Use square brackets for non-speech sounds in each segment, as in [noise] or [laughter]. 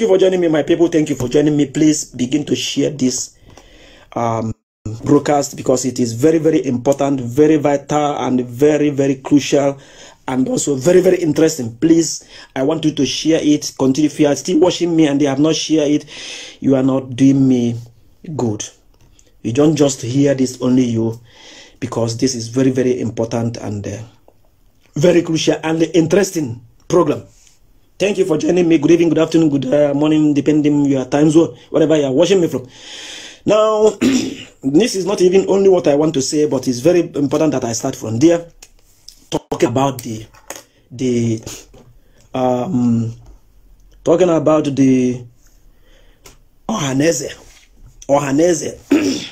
you for joining me, my people. Thank you for joining me. Please begin to share this um, broadcast because it is very, very important, very vital, and very, very crucial, and also very, very interesting. Please, I want you to share it. Continue. If you are still watching me and they have not shared it, you are not doing me good. You don't just hear this only you, because this is very, very important and uh, very crucial and interesting program. Thank you for joining me. Good evening, good afternoon, good uh, morning, depending your time zone, whatever you are watching me from. Now, [clears throat] this is not even only what I want to say, but it's very important that I start from there, talking about the the um, talking about the Ohaneze. Ohaneze.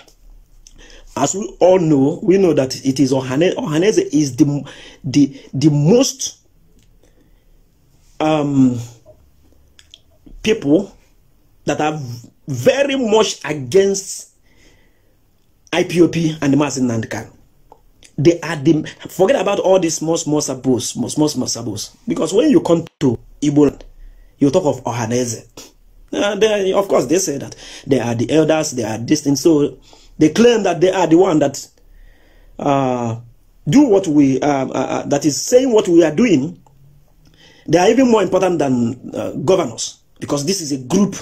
[clears throat] As we all know, we know that it is Ohaneze. Ohaneze is the the the most um, people that are very much against IPOP and the They are the forget about all these small small sabos, small small small sabos. Because when you come to Igbo, you talk of Ohaneze. Uh, of course, they say that they are the elders, they are distant, So they claim that they are the one that uh, do what we uh, uh, uh that is saying what we are doing they are even more important than uh, governors because this is a group,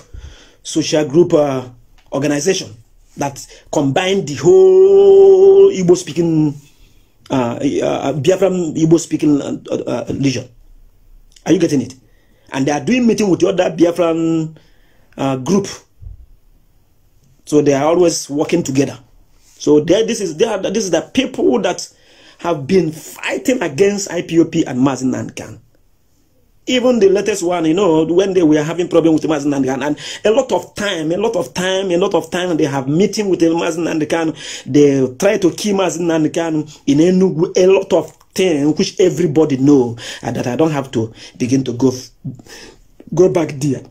social group uh, organization that combined the whole Igbo speaking, uh, uh Biafran Igbo speaking legion. Uh, uh, are you getting it? And they are doing meeting with the other Biafran group. So they are always working together. So there, this is there. This is the people that have been fighting against IPOP and Mazin and even the latest one, you know, when they were having problem with Mazin and and a lot of time, a lot of time, a lot of time, they have meeting with Mazin and They try to keep Mazin and in Enugu. A lot of thing which everybody know, and that I don't have to begin to go go back there.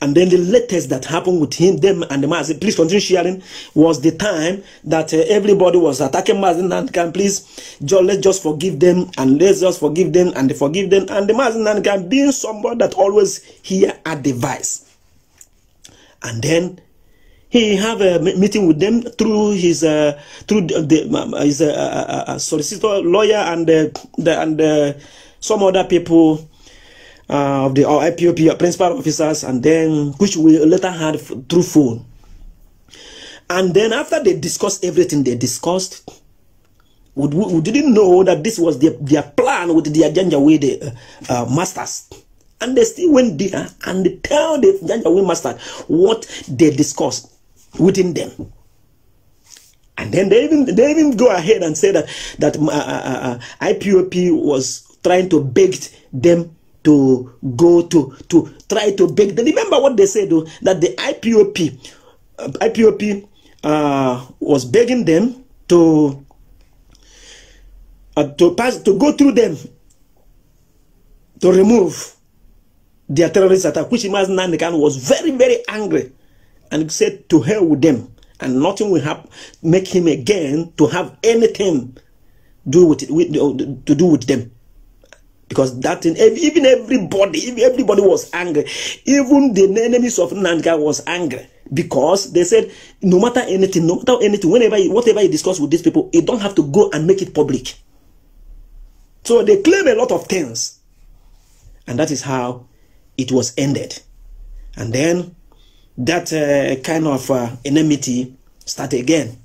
And then the latest that happened with him, them, and the Mazin, please continue sharing, was the time that uh, everybody was attacking and Nankan. Please, just, let's just forgive them, and let's just forgive them, and forgive them. And the and Nankan being somebody that always hear advice. And then he have a meeting with them through his uh, through the, his uh, uh, uh, uh, solicitor lawyer and the, and some other people uh, of the our IPOP, principal officers, and then which we later had through phone. And then after they discussed everything they discussed, we, we didn't know that this was their, their plan with the agenda with the uh, uh, masters. And they still went there and they tell the agenda with masters what they discussed within them. And then they even they even go ahead and say that that uh, uh, uh IPOP was trying to beg them to go to to try to beg them. Remember what they said though, that the IPOP uh, IPOP uh, was begging them to uh, to pass to go through them to remove their terrorist attack, which Imaz Nandekan was very very angry and said to hell with them and nothing will happen make him again to have anything do with, with to do with them because that thing even everybody even everybody was angry even the enemies of Nanga was angry because they said no matter anything no matter anything whenever you, whatever you discuss with these people you don't have to go and make it public so they claim a lot of things and that is how it was ended and then that uh, kind of uh, enmity started again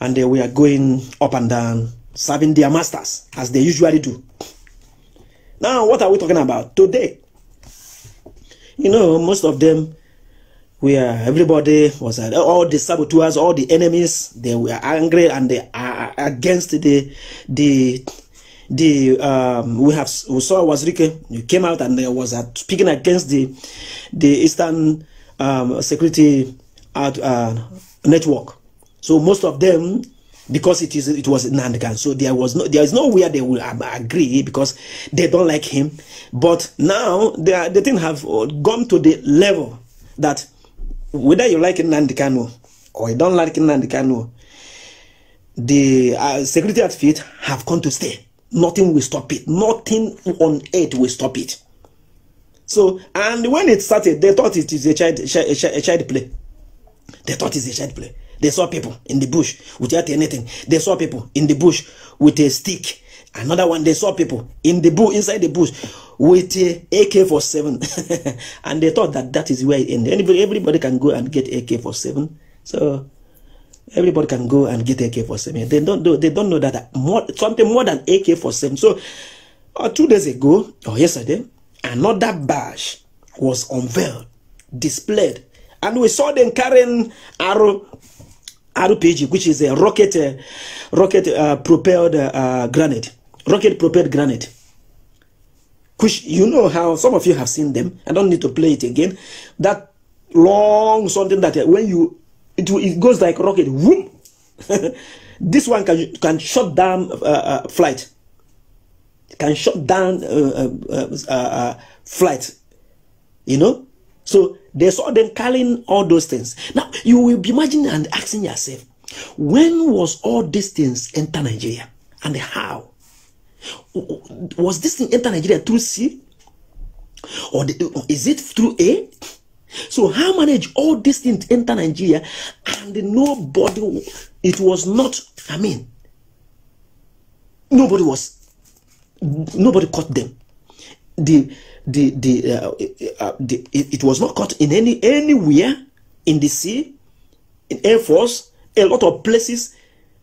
and uh, we are going up and down serving their masters as they usually do. Now, what are we talking about today? You know, most of them we are everybody was at uh, all the saboteurs, all the enemies, they were angry and they are against the the the um we have we saw Wazirike you came out and there was at uh, speaking against the the Eastern um security at uh, network. So most of them because it is it was Nandgan. So there was no there is nowhere they will agree because they don't like him. But now they are, they didn't have uh, gone to the level that whether you like Nandikano or you don't like Nandikano, the uh, security outfit have come to stay. Nothing will stop it. Nothing on earth will stop it. So, and when it started, they thought it is a child, a child, a child play. They thought it's a child play. They saw people in the bush without anything. They saw people in the bush with a stick. Another one, they saw people in the bush, inside the bush with a AK-47. [laughs] and they thought that that is where it ended. Anybody, everybody can go and get AK-47. So everybody can go and get AK-47. They don't know, they don't know that more, something more than AK-47. So uh, two days ago, or yesterday, another badge was unveiled, displayed. And we saw them carrying arrow RPG, which is a rocket, uh, rocket uh, propelled uh, granite, rocket propelled granite. Which you know how some of you have seen them. I don't need to play it again. That long something that uh, when you it, it goes like rocket. Whoop. [laughs] this one can can shut down uh, uh, flight. Can shut down flight. You know, so they saw them carrying all those things. Now, you will be imagining and asking yourself, when was all these things enter Nigeria and how? Was this thing enter Nigeria through C? Or is it through A? So how manage all these things enter Nigeria and nobody, it was not, I mean, nobody was, nobody caught them the the the, uh, uh, uh, the it, it, was not caught in any anywhere in the sea, in air force, a lot of places,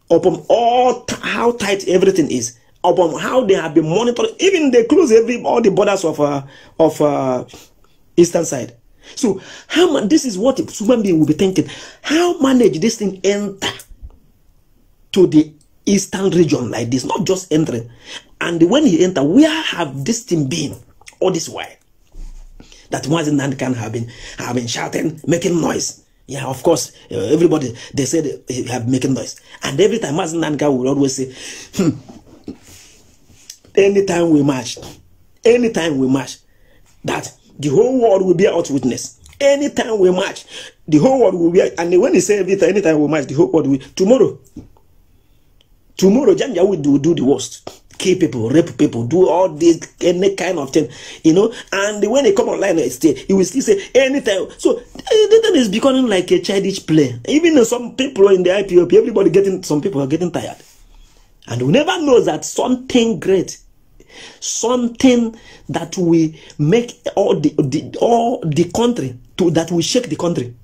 upon all how tight everything is, upon how they have been monitored. Even they close every all the borders of uh, of uh, eastern side. So how man, this is what human being will be thinking. How manage this thing enter to the eastern region like this? Not just entering. And when he enter, where have this thing been? All this while. That once can have been, have been shouting, making noise. Yeah, of course, uh, everybody, they said uh, he have making noise. And every time Mazen can will always say, hmm, anytime we march, anytime we march, that the whole world will be out witness. Anytime we march, the whole world will be And when he say everything, anytime we march, the whole world will, tomorrow, tomorrow, Janja will do, do the worst kill people, rape people, do all this any kind of thing, you know. And when they come online, they still, he will still say anything. So eh, the thing is becoming like a childish play. Even some people in the IPOP, everybody getting some people are getting tired, and we never know that something great. Something that will make all the, the all the country to that will shake the country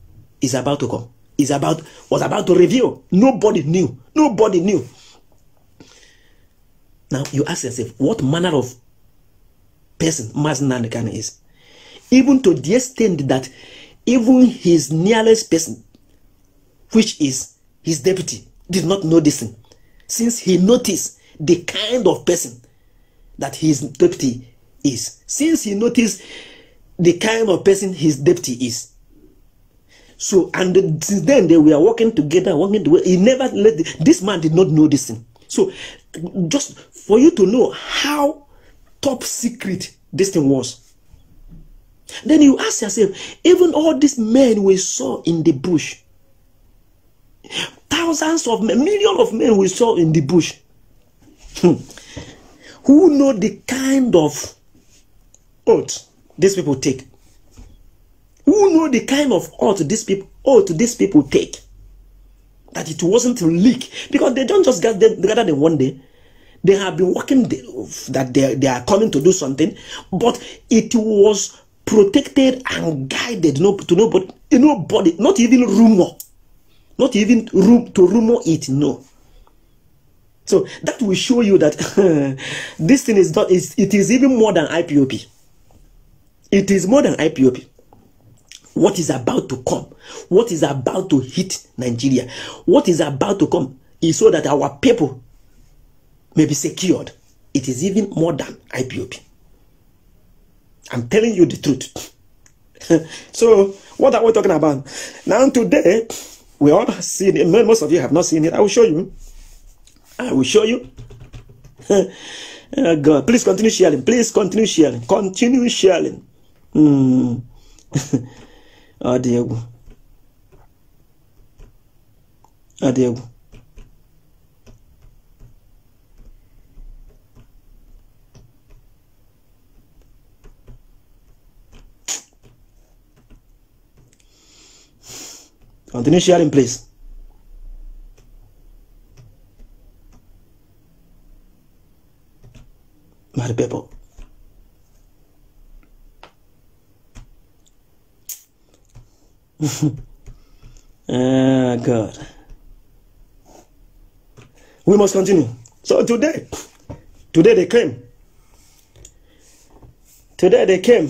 is about to come. Is about was about to reveal. Nobody knew. Nobody knew. Now you ask yourself, what manner of person Mazen Nandekan is? Even to the extent that even his nearest person, which is his deputy, did not know this thing, since he noticed the kind of person that his deputy is, since he noticed the kind of person his deputy is. So, and since then they were working together, working together. He never let the, this man did not know this thing. So, just for you to know how top secret this thing was. Then you ask yourself, even all these men we saw in the bush, thousands of men, millions of men we saw in the bush, hmm, who know the kind of oath these people take? Who know the kind of oath these people oath these people take? That it wasn't a leak because they don't just get gather them one day they have been working that they, they are coming to do something, but it was protected and guided no, to nobody, nobody, not even rumor, not even room to rumor it. No. So that will show you that [laughs] this thing is not. Is it is even more than IPOP. It is more than IPOP what is about to come, what is about to hit Nigeria, what is about to come is so that our people may be secured. It is even more than IPOP. I'm telling you the truth. [laughs] so, what are we talking about? Now, today, we all seen it. Most of you have not seen it. I will show you. I will show you. oh [laughs] God, please continue sharing. Please continue sharing. Continue sharing. Mm. oh, Diego. Oh, Continue sharing, please. My people. [laughs] ah, God. We must continue. So today, today they came. Today they came.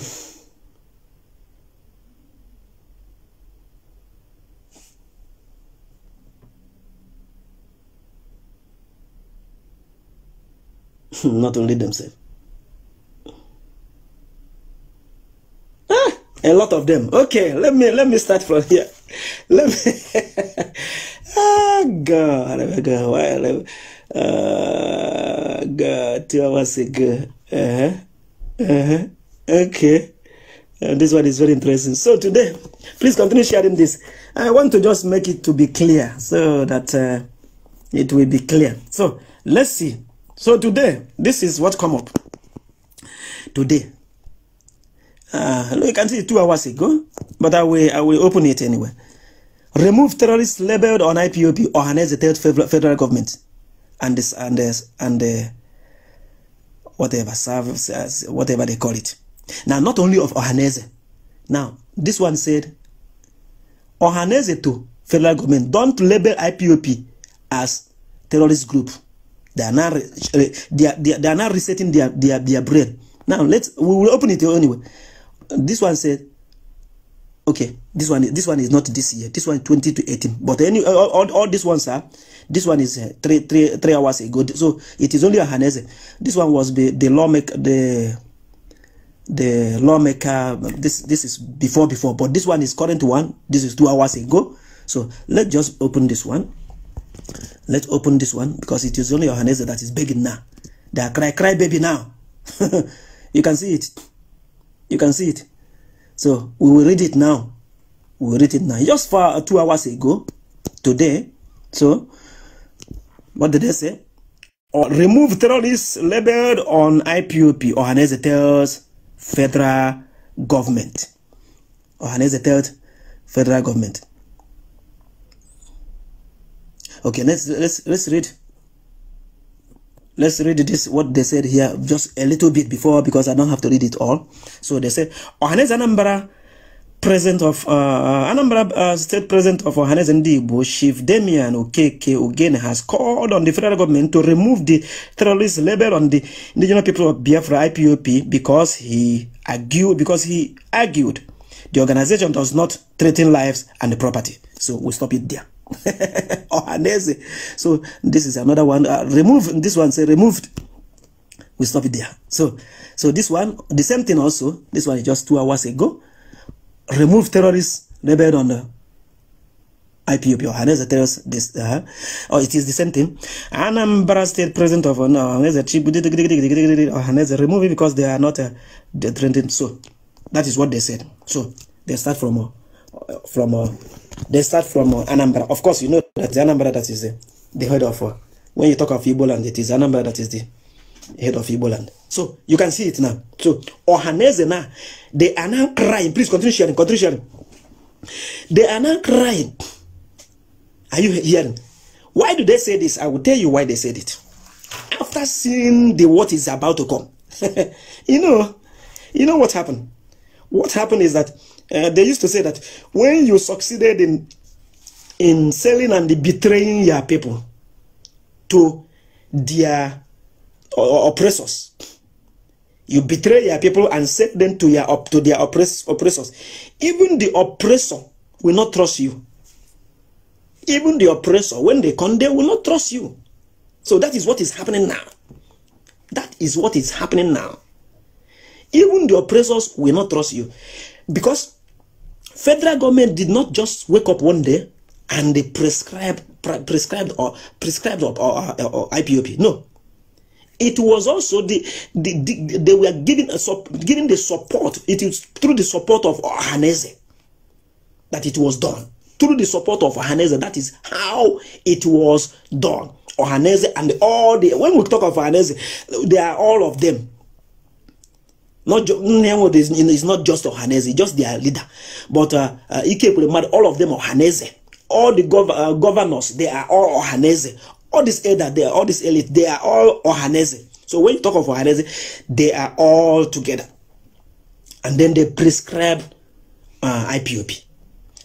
[laughs] not only themselves. Ah, a lot of them. Okay, let me let me start from here. [laughs] [laughs] Ah, oh let me. ah, God, go why? Uh, God, two hours ago. Uh-huh. Uh-huh. Okay. Uh, this one is very interesting. So today, please continue sharing this. I want to just make it to be clear so that uh, it will be clear. So let's see. So today, this is what come up. Today. Uh, look, you can see two hours ago, but I will, I will open it anyway. Remove terrorists labeled on IPOP or harness the third federal government and this and this and the whatever service as whatever they call it. Now, not only of Ohaneze. Now, this one said, Ohaneze to federal government, don't label IPOP as terrorist group. They are now eh, they are, they are, now resetting their, their, their brain. Now, let's, we will open it anyway. This one said, okay, this one, this one is not this year. This one is 20 to 18. But any, all, all, all these ones are, this one is eh, three, three, three hours ago. So it is only a harness. This one was the, the lawmaker, the, the lawmaker this this is before before but this one is current one this is two hours ago so let's just open this one Let's open this one because it is only Yohannes that is begging now. They are cry, cry baby now. [laughs] you can see it. You can see it. So we will read it now. We will read it now. Just for two hours ago, today. So what did they say? Or uh, remove terrorists labeled on IPOP. Ohanese tells federal government. Ohanese tells federal government okay let's let's let's read let's read this what they said here just a little bit before because i don't have to read it all so they said ohanes anambra president of uh, uh, anambra uh, state president of ohanes ndigbo chief damian okeke again has called on the federal government to remove the terrorist label on the indigenous people of biafra ipop because he argued because he argued the organization does not threaten lives and property so we we'll stop it there Ohanese. so this is another one. Uh, remove this one. Say removed. We stop it there. So, so this one, the same thing also. This one is just two hours ago. Remove terrorists rebelled on the IPOP Ohanese terrorists. This, uh, oh, it is the same thing. Anambra State President of Ohanese chief Ohanese remove it because they are not uh, threatened. So, that is what they said. So they start from uh, from. Uh, they start from uh, Anambra. Of course, you know that the Anambra that is the, the head of, uh, when you talk of Igboland, it is Anambra that is the head of Igboland. So you can see it now. So Ohaneze now, they are now crying. Please continue sharing, continue sharing. They are now crying. Are you hearing? Why do they say this? I will tell you why they said it. After seeing the what is about to come, [laughs] you know, you know what happened? What happened is that uh, they used to say that when you succeeded in in selling and betraying your people to their oppressors, you betray your people and set them to your up to their oppress, oppressors. Even the oppressor will not trust you. Even the oppressor, when they come, they will not trust you. So that is what is happening now. That is what is happening now. Even the oppressors will not trust you. Because federal government did not just wake up one day and they prescribed prescribed or prescribed or, or, or IPOP. No, it was also the, the, the they were giving a giving the support. It is through the support of Hanese that it was done. Through the support of Hanese, that is how it was done. Ohanese and all the when we talk of Ohanese, they are all of them. Not ju- Nnewood is, is not just Ohaneze, just their leader. But uh, uh, all of them Ohaneze. All the gov- uh, governors, they are all Ohaneze. All these elder, they are all this elite, they are all Ohaneze. So when you talk of Ohaneze, they are all together. And then they prescribe uh, IPOP.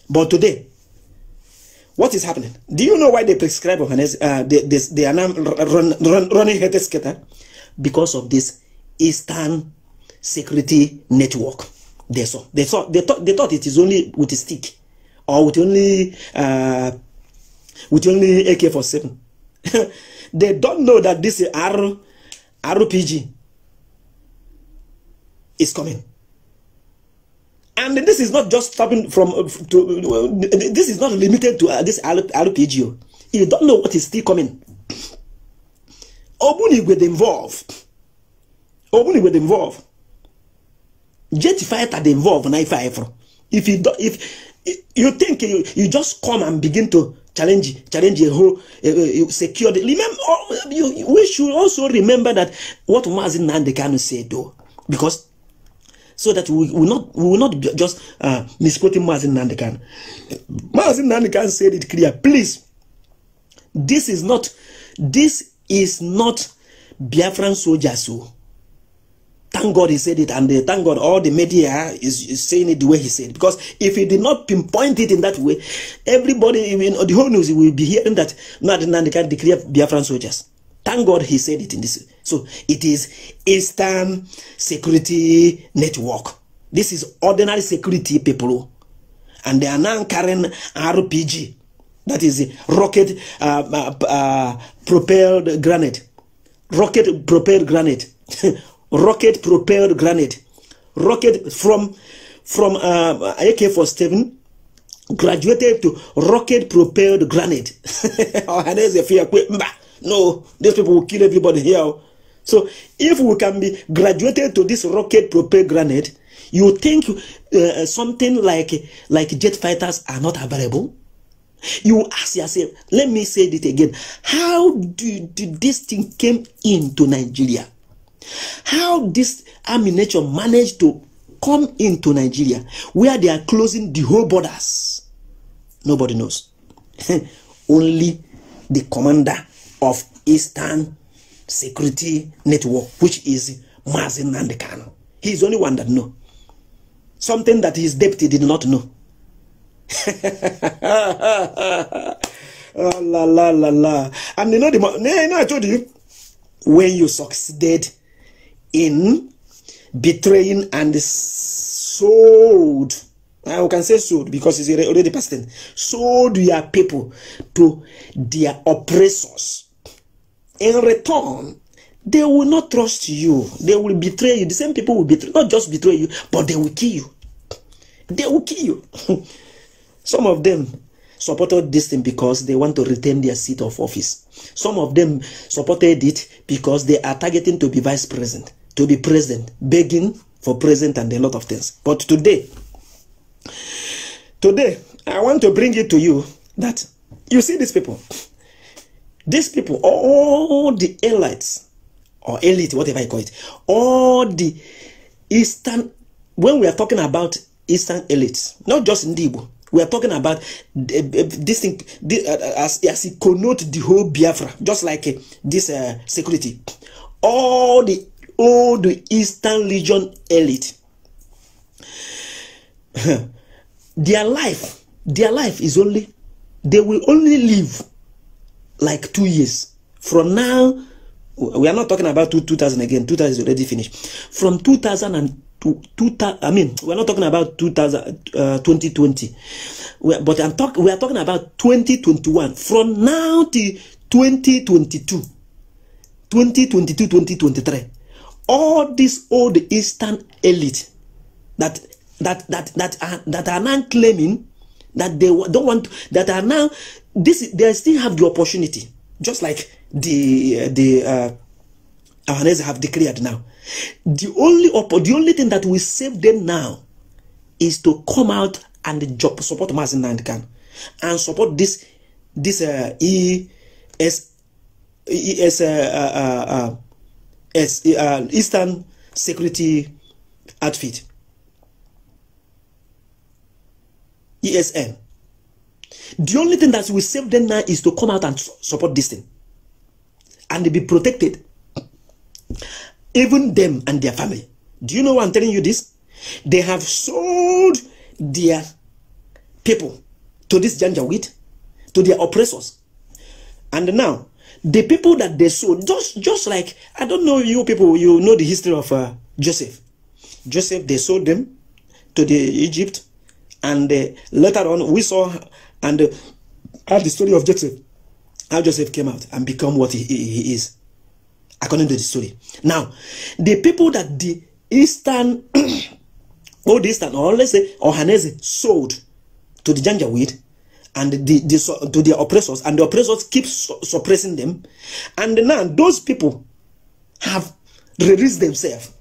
But today, what is happening? Do you know why they prescribe Ohaneze? Uh, they, they, they are now run, run, running Hete Skater because of this Eastern security network. They saw. They saw. They thought. They thought it is only with a stick, or with only uh, with only AK-47. [laughs] they don't know that this R, RPG is coming. And this is not just stopping from. To, this is not limited to uh, this RPG. You don't know what is still coming. Obuni with involved. Obuni with involved jet fighter dey involve na ife if you if you think you, you just come and begin to challenge challenge a whole uh, uh, security remember oh, you, we should also remember that what Mazin Nandekano said though because so that we will not we will not just uh, misquoting Mazin Nandekan. Mazin Nandekan said it clear. Please, this is not this is not Biafran soldiers. So. Oh thank God he said it, and they uh, thank God all the media is, is saying it the way he said. Because if he did not pinpoint it in that way, everybody, even the whole news, will be hearing that not Nandi can declare Biafran soldiers. Thank God he said it in this. So it is Eastern Security Network. This is ordinary security people, and they are now carrying RPG, that is rocket uh, uh, uh, propelled granite, rocket propelled granite. [laughs] rocket propelled grenade, rocket from from uh, AK-47 graduated to rocket propelled grenade. [laughs] Oh, no, these people will kill everybody here. So if we can be graduated to this rocket propelled grenade, you think uh, something like like jet fighters are not available? You ask yourself, let me say it again. How do this thing came into Nigeria? How this army nature managed to come into Nigeria where they are closing the whole borders, nobody knows. [laughs] Only the commander of Eastern Security Network, which is Mazin Nandekano. He is the only one that know. Something that his deputy did not know. [laughs] oh, la, la, la, la. And you know, the, you know, I told you, when you succeeded in betraying and sold. I ah, can say sold because it's already past tense. Sold your people to their oppressors. In return, they will not trust you. They will betray you. The same people will betray, not just betray you, but they will kill you. They will kill you. [laughs] Some of them supported this thing because they want to retain their seat of office. Some of them supported it because they are targeting to be vice president. to be present, begging for present and a lot of things. But today, today, I want to bring it to you that you see these people, these people, all the elites or elite, whatever you call it, all the Eastern, when we are talking about Eastern elites, not just Ndibo, we are talking about this thing uh, as, as it connotes the whole Biafra, just like uh, this uh, security. All the all the Eastern Legion elite. [laughs] their life, their life is only, they will only live like two years. From now, we are not talking about 2000 again, 2000 is already finished. From 2000 and to, two, I mean, we're not talking about 2000, uh, 2020, we're, but I'm talk, we are talking about 2021. From now to 2022, 2022, 2023 all this old eastern elite that that that that are, that are now claiming that they don't want that are now this they still have the opportunity just like the the uh, Ahanese have declared now the only the only thing that will save them now is to come out and job, support Mazin Nandikan and support this this uh, ES, ES uh, uh, uh, uh, Eastern Security Outfit, ESN. The only thing that will save them now is to come out and support this thing. And they be protected. Even them and their family. Do you know why I'm telling you this? They have sold their people to this janjaweed, to their oppressors. And now, the people that they sold, just just like I don't know you people, you know the history of uh, Joseph. Joseph, they sold them to the Egypt, and uh, later on we saw and uh, had the story of Joseph, how Joseph came out and become what he, he, he is, according to the story. Now, the people that the Eastern, [clears throat] all Eastern, or let's say Ohanese sold to the Janjaweed and the, the to their oppressors, and the oppressors keep su suppressing them. And now those people have released themselves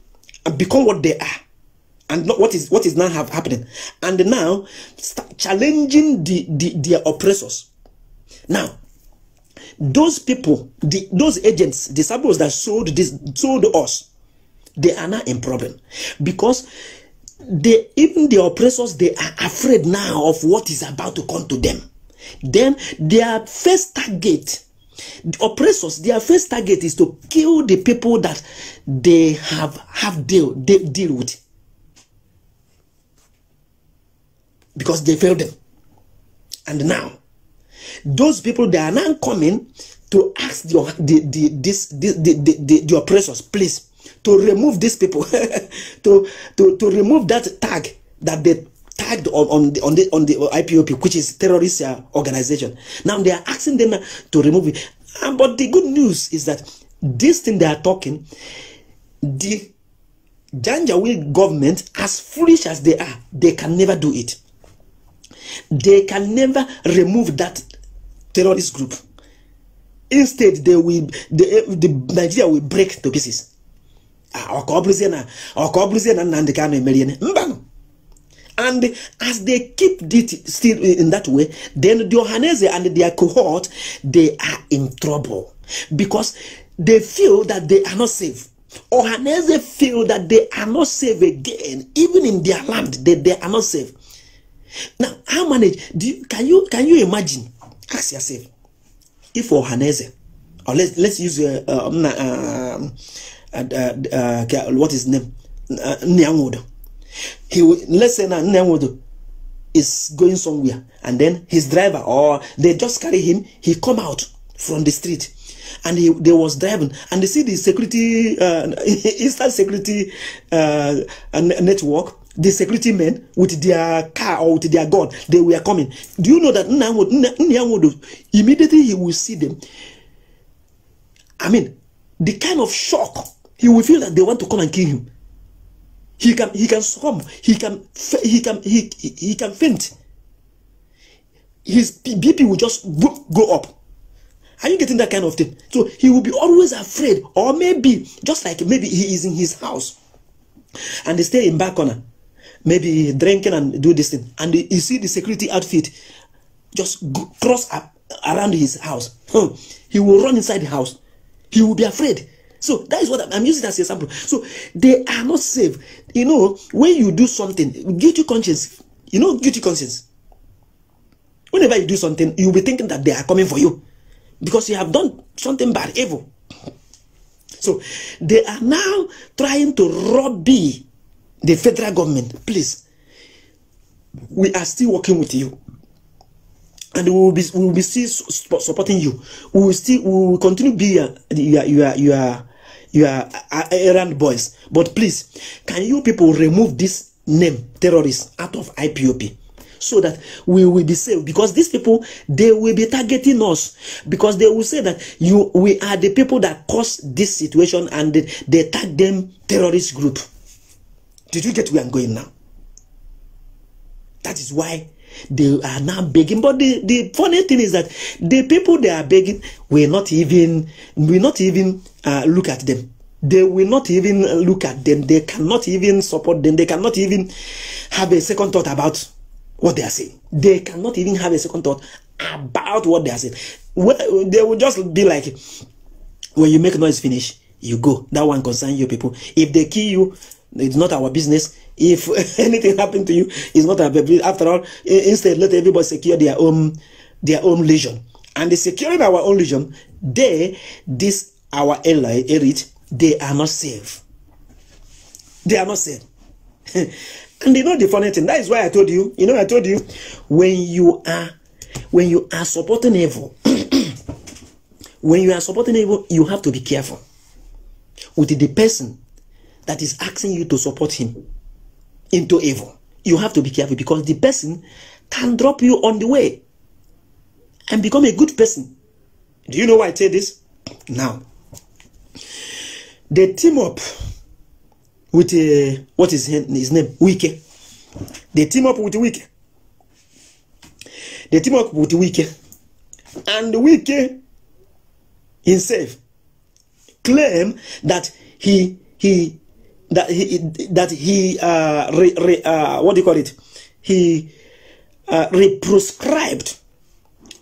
and become what they are, and not what is what is now have happening. And now start challenging the, the their oppressors. Now, those people, the, those agents, disciples that sold this sold us, they are now in problem because they, even the oppressors, they are afraid now of what is about to come to them. Then their first target, the oppressors, their first target is to kill the people that they have have deal they deal with because they failed them. And now, those people they are now coming to ask the, the, the, this, the, the, the, the oppressors, please to remove these people, [laughs] to, to, to remove that tag that they tagged on, on, the, on, the, on the IPOP, which is terrorist uh, organization. Now they are asking them uh, to remove it. but the good news is that this thing they are talking, the Janjaweed government, as foolish as they are, they can never do it. They can never remove that terrorist group. Instead, they will, the Nigeria will break to pieces. Ah, and as they keep it still in that way then the and their cohort they are in trouble because they feel that they are not safe Ohanaeze feel that they are not safe again even in their land they, they are not safe now how manage do you, can you can you imagine ask yourself if Johannes, or let's let's use uh, uh, um, um, uh, uh, what is name uh, Nyanwodo. He will, let's say now Nyanwodo is going somewhere, and then his driver or they just carry him. He come out from the street, and he they was driving, and they see the security uh, Eastern [laughs] security uh, network. The security men with their car or with their gun, they were coming. Do you know that Nyanwodo immediately he will see them? I mean, the kind of shock he will feel that they want to come and kill him. He can he can swim. He can he can he he, he can faint. His BP will just go up. Are you getting that kind of thing? So he will be always afraid, or maybe just like maybe he is in his house, and they stay in back corner, maybe drinking and do this thing, and you see the security outfit just cross up around his house. Hmm. He will run inside the house. He will be afraid. So that is what I'm, I'm using as an example. So they are not safe. You know, when you do something, guilty conscience, you know, guilty conscience. Whenever you do something, you'll be thinking that they are coming for you because you have done something bad, evil. So they are now trying to lobby the federal government. Please, we are still working with you. And we will be, we will be still supporting you. We will still we will continue to be your, your, your, your you are errand boys but please can you people remove this name terrorist out of IPOP so that we will be safe? because these people they will be targeting us because they will say that you we are the people that caused this situation and they, they tag them terrorist group did you get where i'm going now that is why they are now begging. But the, the funny thing is that the people they are begging will not even will not even uh, look at them. They will not even look at them. They cannot even support them. They cannot even have a second thought about what they are saying. They cannot even have a second thought about what they are saying. Well, they will just be like, when you make noise finish, you go. That one concern you people. If they kill you, it's not our business. If [laughs] anything happened to you, it's not a After all, instead, let everybody secure their own their own legion. And the securing our own legion, they, this our ally, elite, they are not safe. They are not safe. [laughs] and you know the funny thing. That is why I told you. You know, I told you when you are when you are supporting evil. [clears throat] when you are supporting evil, you have to be careful with the person that is asking you to support him. into evil. You have to be careful because the person can drop you on the way and become a good person. Do you know why I say this? Now, they team up with what is his name? Wike. They team up with Wike. They team up with Wike. And Wike himself claim that he he that he that he uh, re, re, uh, what do you call it he uh, prescribed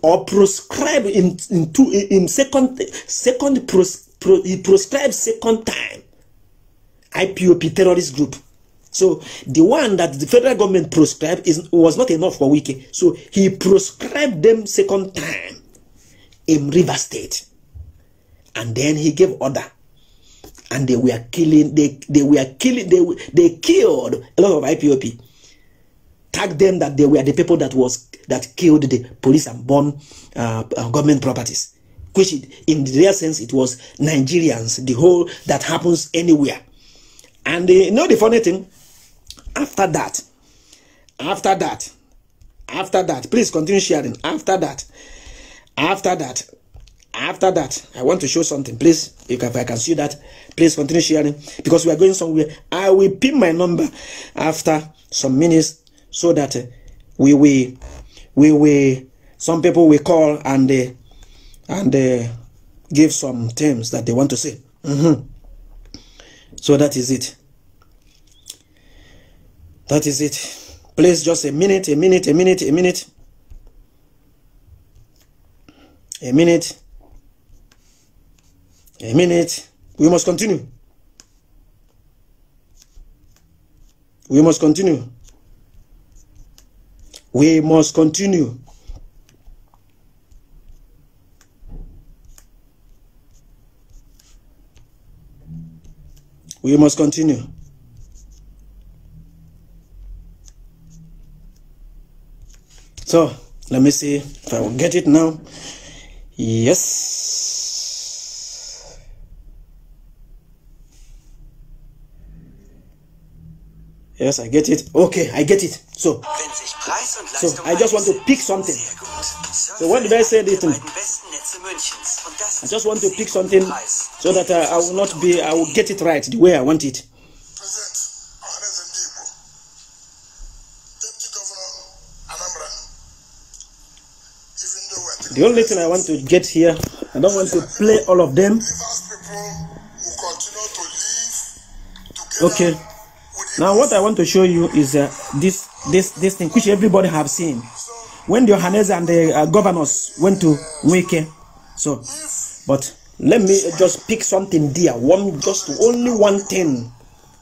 or prescribed in in, two, in second second pros, pro, he prescribed second time IPOP terrorist group so the one that the federal government prescribed is was not enough for Wiki so he prescribed them second time in River State and then he gave order and they were killing, they, they were killing, they, they killed a lot of IPOP. Tag them that they were the people that was that killed the police and burned uh, uh, government properties. Which it, in the real sense, it was Nigerians, the whole that happens anywhere. And they, uh, you know the funny thing, after that, after that, after that, please continue sharing. After that, after that, after that i want to show something please if i can see that please continue sharing because we are going somewhere i will pin my number after some minutes so that uh, we will we will some people will call and uh, and uh, give some terms that they want to say mm -hmm. so that is it that is it please just a minute a minute a minute a minute a minute a minute. We must continue. We must continue. We must continue. We must continue. So, let me see if I will get it now. Yes. Yes, I get it. Okay, I get it. So, so I just want to pick something. So when I say this, I just want to pick something so that I, uh, I will not be, I will get it right the way I want it. The only thing I want to get here, I don't want to play all of them. Okay. Now what I want to show you is uh, this this this thing which everybody have seen. When the Johannes and the uh, governors went to Wake, so but let me just pick something dear. One just only one thing,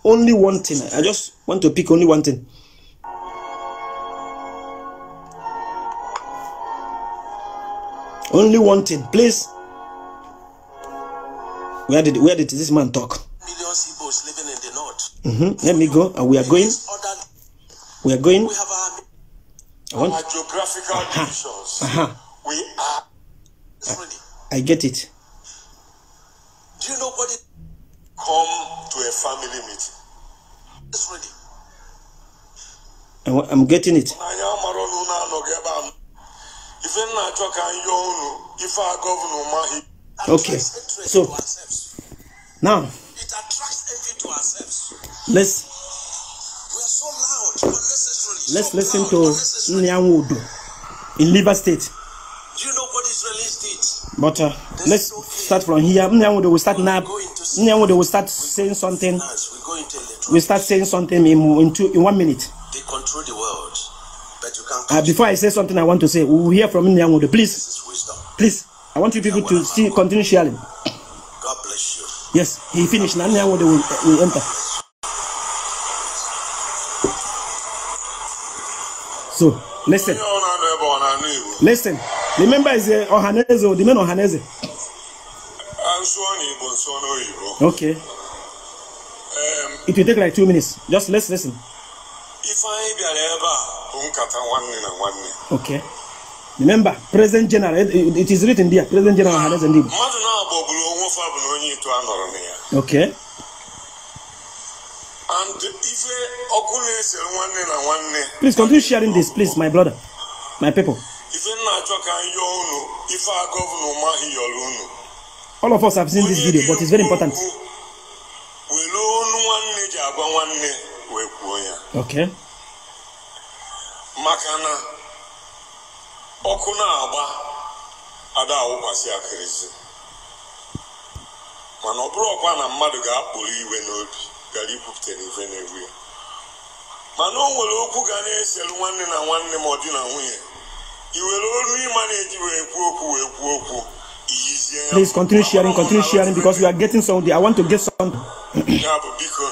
only one thing. I just want to pick only one thing. Only one thing, please. Where did where did this man talk? Mm-hmm. Let me go. Uh, we are going. We are going. We have our, I want... our geographical uh-huh. divisions. Uh-huh. We are. I, I get it. Do you know what it come to a family meeting? It's ready. I'm, I'm getting it. Okay. So now. It attracts to ourselves. Let's. We are so loud unnecessarily. Let's so listen to Nyanwodo in Liver State. Do you know what Israelis did? But uh, let's okay. start from here. Nyanwodo will start now. Nyanwodo will start saying something. We start saying something in, in, two, in one minute. They control the world. But you can't uh, before I say something, I want to say, we'll hear from Nyanwodo. Please. Please. I want you people to see, continue sharing. Yes, he finished. Now now they will, will enter. So listen. Listen. Remember, is uh, Ohaneze, the man Ohaneze. Okay. Um, it will take like two minutes. Just let's listen. If I be a neighbor, okay. Remember, present general. It, it is written there. Present general has a name. Okay. And if Please continue sharing this, please, my brother, my people. All of us have seen this video, but it's very important. Okay. ọkụ na-agba ada awụkwasị akịrịsị mana ọ bụrụ ọkwa na mmadụ ga-akpụrụ iwe n'obi gara ikwupụta n'ife na-egbu ya mana o nwere okwu ga na-eselu nwanne na nwanne ma ọ dị na nwunye i were olu ịma na-eji wee kwuo okwu wee kwuo okwu iyizie Please continue sharing, continue sharing because we are getting something. I want to get some. ya bụ biko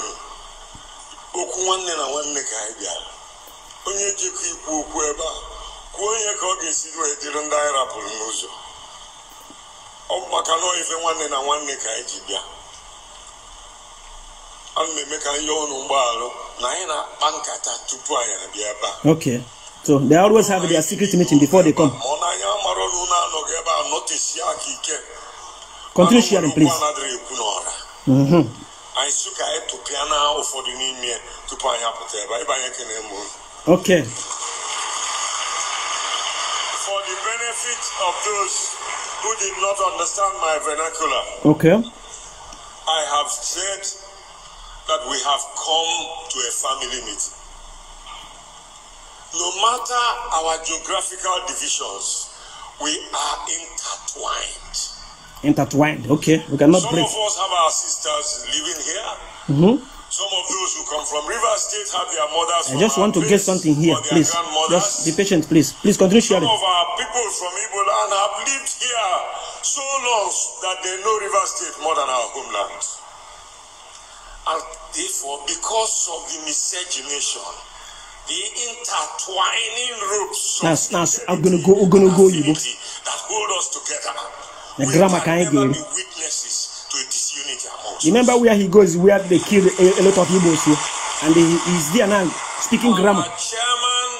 okwu nwanne na nwanne ka anyị bịara onye jikọ ikwu okwu ebe a kwuo ihe ka ọ ga-esi wee dịrị ndị anyị rapụrụ n'ụzọ ọ bụ maka na ife nwanne na nwanne ka anyị ji bịa ana na eme ka anyị yọọ ọnụ mgbaghalụ na anyị na-akpa nkata tupu anyị abịa ebe a okay so they always have their secret meeting before they come ọ na anya mara ọnụ na anọghị ebe a nọtisia aka ike continue sharing please mm-hmm. anyị sị ka anyị tụpịa na ụfọdụ n'ime tupu anyị apụta ebe anyị banye na mụrụ okay benefit of those who did not understand my vernacular. Okay. I have said that we have come to a family meeting. No matter our geographical divisions, we are intertwined. Intertwined, okay. We cannot Some break. of us have our sisters living here. Mm-hmm. I just want to get something here, please. Just be patient, please. Please continue sharing. Some of our people from Igboland have lived here so long that they know River State more than our homeland. And therefore, because of the miscegenation, the intertwining roots now, now, I'm gonna go, I'm gonna go, you that hold us together, the we grammar can, can be witnesses to disunity among Remember where he goes, where they killed a, a lot of Igbos, and he is there now speaking our grammar. chairman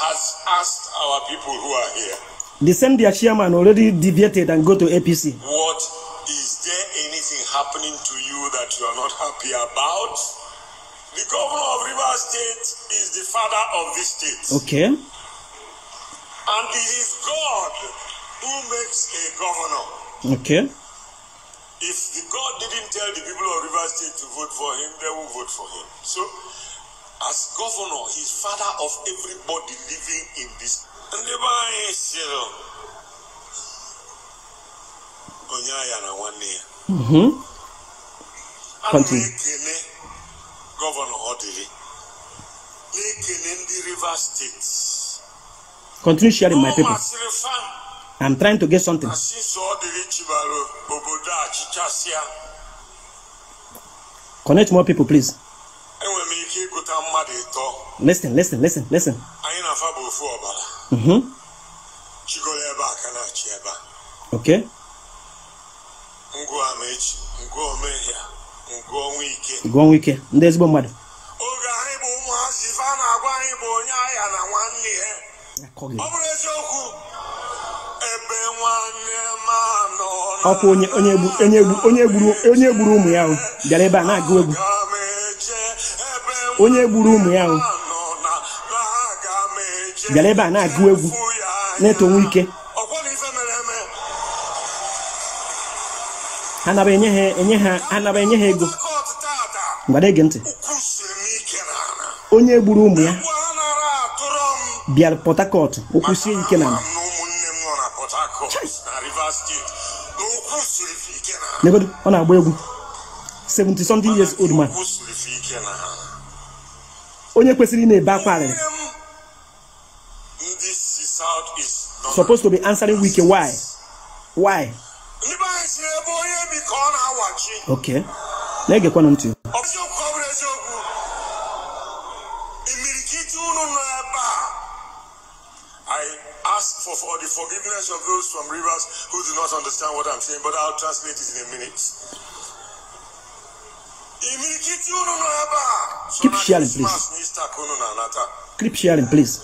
has asked our people who are here. The same their chairman already deviated and go to APC. What is there anything happening to you that you are not happy about? The governor of Rivers State is the father of this state. Okay. And it is God who makes a governor. Okay. If God didn't tell the people of River State to vote for him, they will vote for him. So, as governor, he's father of everybody living in this. And the man, sịrị onye agha na nwanne ya. Ana m ekele gọvanọ ọ dịrị Rivers State. Continue sharing my paper. I'm trying to get something. Connect more people, please. Listen, listen, listen, listen. Mm-hmm. Okay. Gụọ nwa ike ndị ọkwa onye onye gburu ụmụ ya ahụ bịara ebe a na-agụ egwu onye gburu ụmụ ya ahụ bịara ebe a na-agụ egwu na-etonwe ike anaba enye ha enye enye ha ego gbara ege ntị onye gburu ụmụ ya bịara pọtakọt Harcourt o ike na ala nebedu ọ na egwu 70 something years old man onye kwesịrị na-ebe akwa arịrị supposed to be answering wike why why okay na-egekwana ntị forgiveness of those from rivers who do not understand what I'm saying, but I'll translate it in a minute. Keep sharing, please. Keep sharing, please.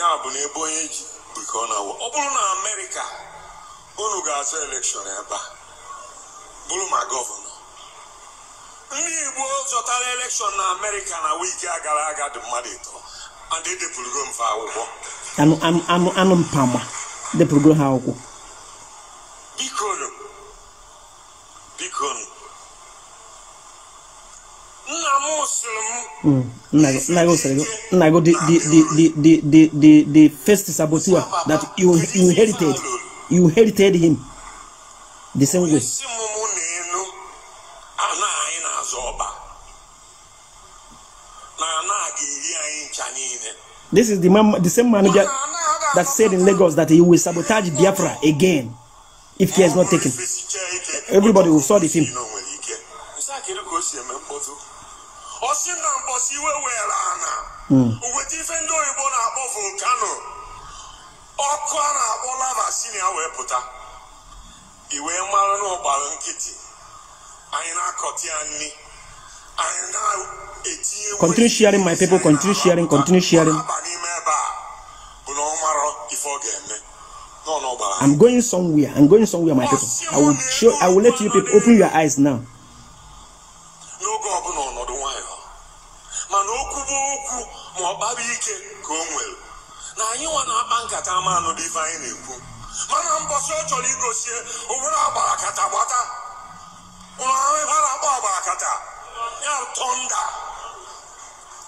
ya bụ na onye ji bụ ka ọ bụrụ na amerịka unu ga-azụ elekshọn ebe a bụrụ ma gọvanọ ndị igbo zọtara elekshọn na amerịka na wiki a gara aga dị mmadụ ịtọ and edepụrugo m akwụkwọ anụ mpama depụrugo ha akwụkwọ bikonu bikonu nna m sịrị m hmm, nna gị the the the the the the first saboteur that you inherited you inherited him the same way. This is the, man, the same manager that said in Lagos that he will sabotage Biafra again if he is not taken. Everybody will saw the film. Eh, ọsị na na-akpọ hmm. ya wee anyị na-akọta ya nri Continue sharing, my people. Continue sharing. Continue sharing. I'm going somewhere. I'm going somewhere, my people. I will show. I will let you people open your eyes now. mana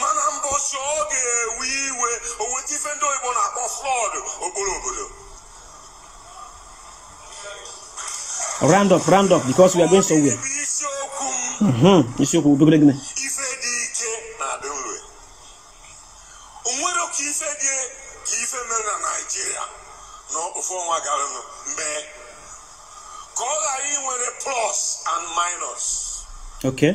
mana mbọchị ọ ga-ewe iwe o weta ife ndị oyibo na-akpọ flọd okporo obodo round up round up because we are going somewhere isiokwu mm-hmm, dogere gịnị ife dị ike na-adị nre onwere ka ife dị ka ife mere na naijiria n'ofe ọnwa gara mee ka ọ ghara inwere plus and minus okay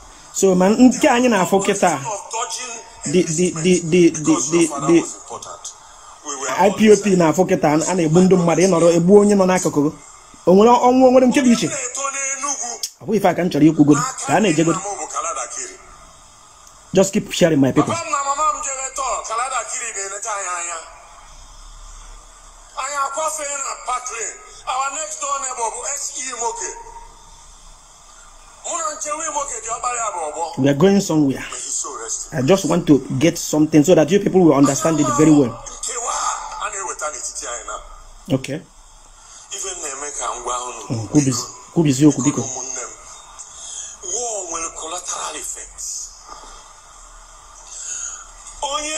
so man, nke anyị na-afụ kịta IPOP na-afụ kịta a na-egbu ndị mmadụ ịnọrọ egbu onye nọ n'akụkụ o nwere ọnwụ nwere nke dị iche ọ bụghị ife aka m chọrọ ikwugodo ka a na-ejegodo just keep sharing my people We are going somewhere. I just want to get something so that you people will understand it very well. Okay. Kubizi okwu War collateral effects. Onye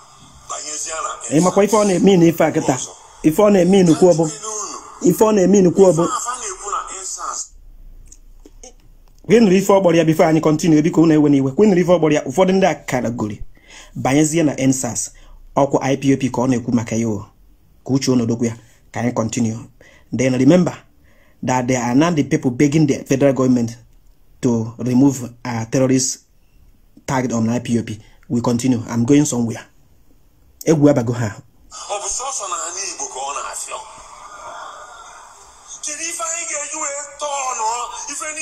ịmakwa ife ọ na-eme na ife a kịta ife ọ na-eme inukwu ọbụ ife ọ na-eme inukwu ọbụ gịnụrụ banyezie na ensas IPOP ka na na-ekwu maka ya ka uche onodokwu ya ka continue. then remember that there are not the people begging the federal government to remove a uh, terrorist target on IPOP. We continue. I'm going somewhere. egwu abago ha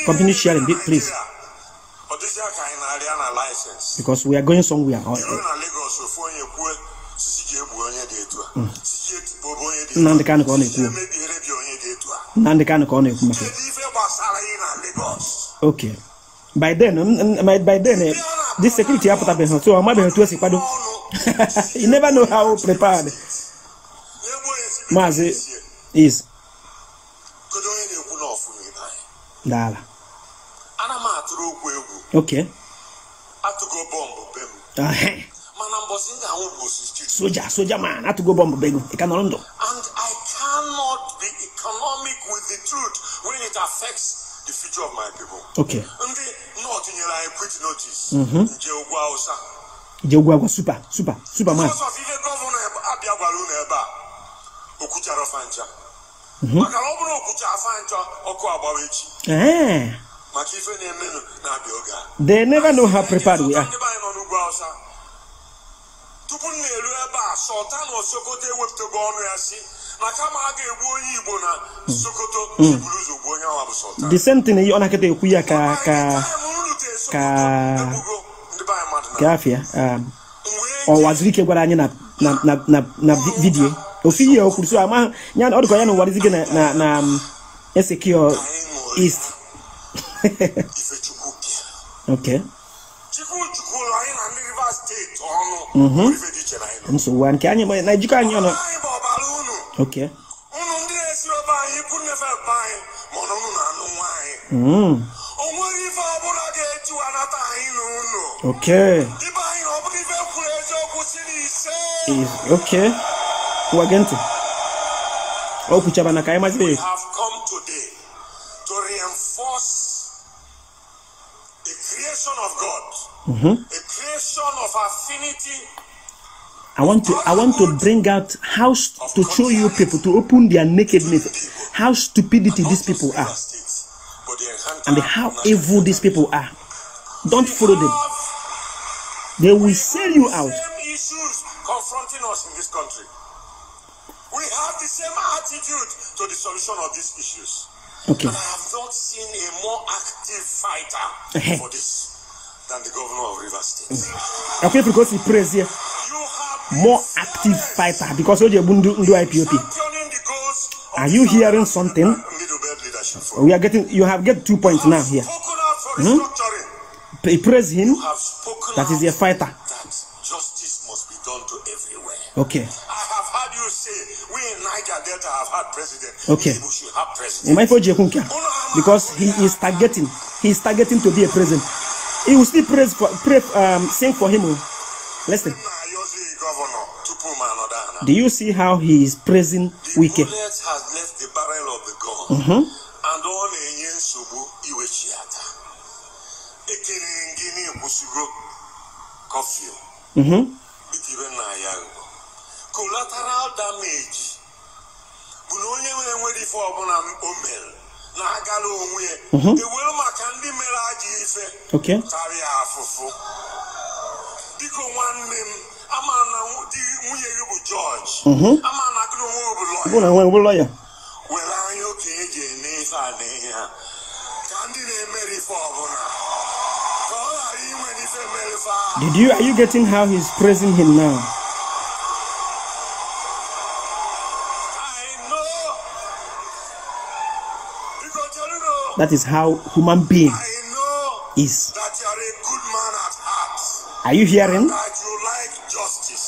continue sharing bit please because we are going somewhere ọ ịrụ mm. ka ọ na-ekwu emebiere bi ka ọ na-ekwu maka kedu okay by then by then eh, this security apụtabeghị nso ọ mabeghị otu esi kwado you never know how prepared maazị is daala soja man i ka nọrọ ndụ and i cannot be economic with the truth when it affects the future of my people. Okay. Ndị North nyere anyị quit notice. Mhm. Nje ugwu Hausa. Nje ugwu Hausa super super super man. Because of ihe gọvanọ abịa gwara unu ebe a, okwuchara ọfa ncha. Mhm. Maka na ọ bụrụ okwucha afa ncha ọkụ agbawa echi. Eh. Maka ife na-emenụ na-abịa oge a. They never know how prepared we are. Tupu m na-eru ebe a, sọta osokoto ewepụtago ọnụ ya si na kama na hmm. sokoto hmm. same thing ọ na-akịta ekwu ya ka ka ka gafia um, ọwazirike gwara anyị na na na na ofu ihe o kwuru so ama ya ọ dịkwa ya na ụwarizike na na na um, esekio na ejikọ mm-hmm. anyị Okay. Unu hmm. ndị na anyị ikwu nnefe anyị ma ọnụ na anụ nwa O nwere ife ọbụla ga-eji anata anyị na unu. Okay. Ibe anyị ọ bụrụ ife kwuru eziokwu si na ise. Okay. Ụwa gee ntị. O kwuchaba na ka anyị mazie. Mm-hmm. The creation of affinity I want to I want to bring out how to show you people to open their nakedness, how stupidity these people are, and how evil these people are. Don't follow them. They will sell you out. Issues confronting us in this country. We have the same attitude to the solution of these issues. Okay. And I have not seen a more active fighter for this than the governor of Rivers State. Akwe because he prays here. More active fighter because Oje Bundu Ndu IPOP. Are you hearing something? We are getting. You have get two points now here. Hmm? He praise him. That is a fighter. Justice must be done to everywhere. Okay. in Niger Delta have Okay. Because he is targeting. He is targeting to be a president. He will still praise for, pray, um, sing for him. Oh. Listen. Do you see how he is praising the Wike? has left the barrel of the gun. Mm -hmm. And yensubu iwechiata. coffee. Oh. Mm-hmm. Oh. Collateral damage. Mm-hmm. na-agara onwe mm-hmm. Did you are you getting how he's praising him now? That is how human being is. Are you hearing?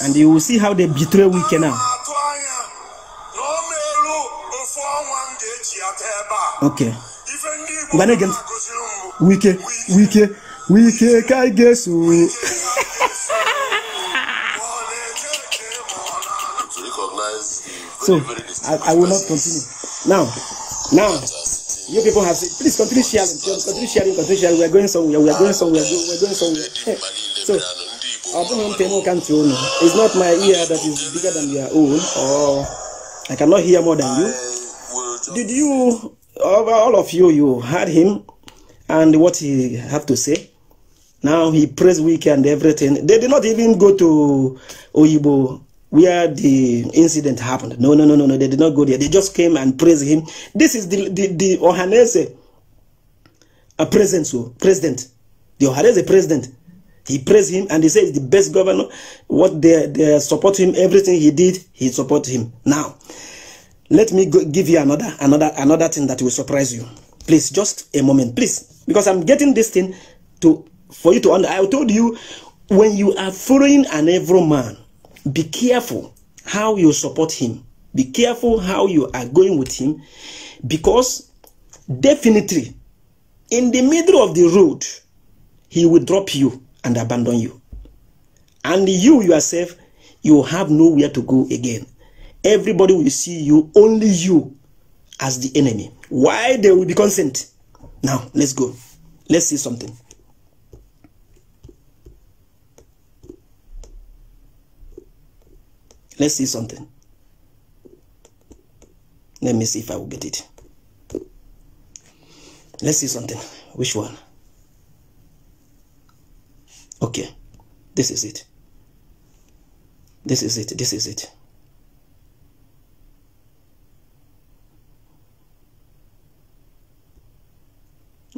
and you will see how they betray Wike now. Okay. again, Wike, Wike, Wike, I guess. so, I, I will not continue. Now, now. You people have said, please continue sharing, continue sharing, continue sharing. We are going somewhere, we are going somewhere, we are going somewhere. Hey. So, it's not my ear that is bigger than your own, or I cannot hear more than you. Did you, all of you, you heard him and what he have to say? Now he prays weekend everything. They did not even go to Oyibo where the incident happened. No, no, no, no, no. They did not go there. They just came and praised him. This is the the, the Ohanese a president, so president. The Ohanese president. He praised him and he said the best governor. What they they support him, everything he did, he support him. Now, let me go, give you another another another thing that will surprise you. Please, just a moment, please, because I'm getting this thing to for you to understand. I told you when you are following an evil man, be careful how you support him be careful how you are going with him because definitely in the middle of the road he will drop you and abandon you and you yourself you have nowhere to go again everybody will see you only you as the enemy why they will be consent now let's go let's see something Let's see something. Let me see if I will get it. Let's see something. Which one? Okay. This is it. This is it. This is it.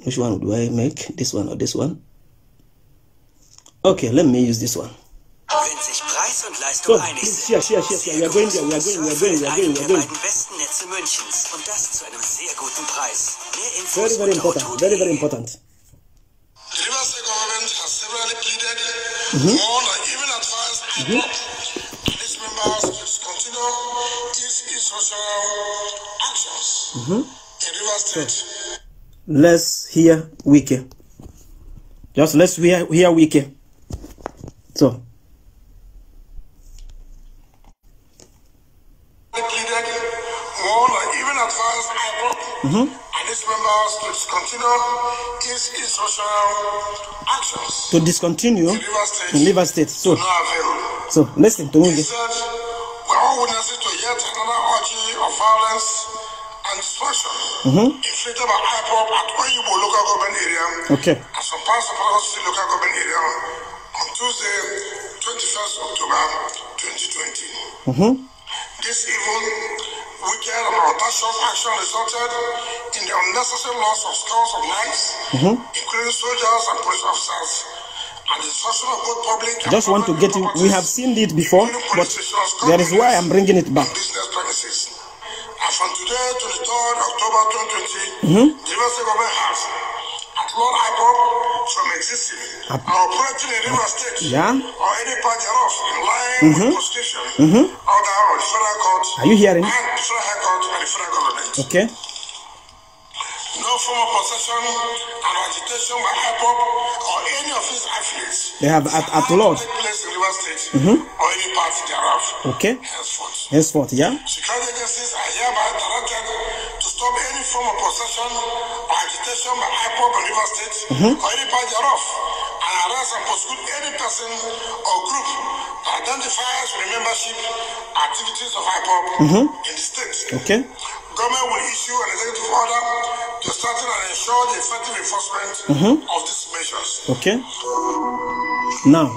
Which one do I make? This one or this one? Okay, let me use this one. So, yeah, yeah, yeah, wir gehen, wir gehen, wir gehen, wir gehen, wir gehen. besten Netze Münchens und das zu einem sehr guten Preis. Mehr Infos very, very important, very, very important. The government has severally pleaded, mhm. warned, and even advised its mhm. members to continue these institutional actions in mhm. River So, let's hear Wiki. Just let's hear, hear Wiki. So. pleaded more or even advanced IPOP. Mm-hmm. And its members to discontinue its instructional actions. To discontinue in Liver State. In State. So, so listen to me. He said, we're all witnesses to yet another orgy of violence and destruction mm-hmm. inflicted by IPOP at Oyibo local government area okay. and some parts of Lagos City local government area on Tuesday, 21st October 2020. Mm-hmm. This evil, wicked, and audacious action resulted in the unnecessary loss of scores of lives, mm-hmm. including soldiers and police officers. And the destruction of both public I just want to get you. We have seen it before, but there is why I'm bringing it back. And from today to the 3rd October 2020, mm-hmm. the US government has from existing or operating in River State yeah. or any part thereof in line mm -hmm. with the Constitution mm -hmm. or the Federal Court. Are you hearing? And Federal Court and the Federal Government. Okay. No form of possession and agitation by hip hop or any of its affiliates. They have at, at Lord. Take place in River State mm-hmm. or any part thereof. Okay. Henceforth. Henceforth, yeah. Security agencies are hereby directed to stop any form of possession or agitation by hip hop in River State mm-hmm. or any part thereof and arrest and prosecute any person or group that identifies with membership activities of IPOP mm-hmm. in the state. Okay. government will issue an executive order to strengthen and ensure the effective enforcement mm-hmm. of these measures. Okay. Now,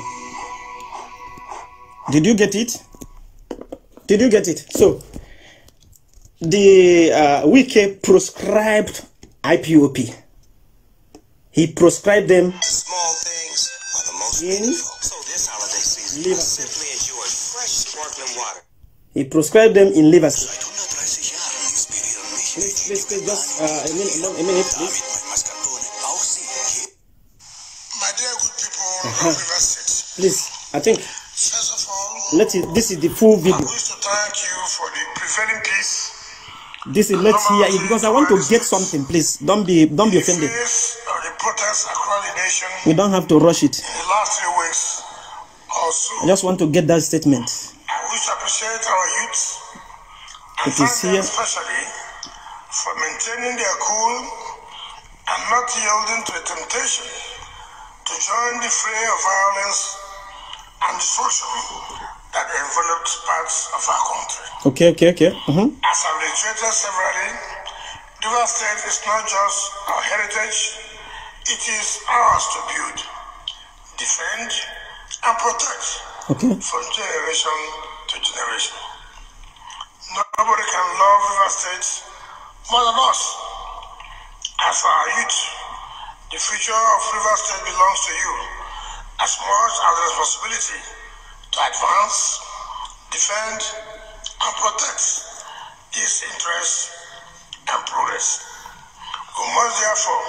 did you get it? Did you get it? So, the uh, prescribed proscribed IPOP. He proscribed them. Small things are the most in So this holiday season, simply enjoy fresh sparkling water. He proscribed them in Liverpool please, please, just uh, a minute, a minute, please. My dear good people uh-huh. Please, I think. First of all, let us this is the full video. I wish to thank you for the prevailing peace. This is let's hear it because I want to get something. Please don't be don't be offended. We don't have to rush it. I just want to get that statement. I wish to appreciate our youth. It is here. Especially for maintaining their cool and not yielding to a temptation to join the fray of violence and destruction that enveloped parts of our country. Okay, okay, okay. Mm-hmm. As I've reiterated severally, River State is not just our heritage, it is ours to build, defend, and protect okay. from generation to generation. Nobody can love River State more than us, as our youth, the future of River State belongs to you as much as the responsibility to advance, defend, and protect its interests and progress. We must therefore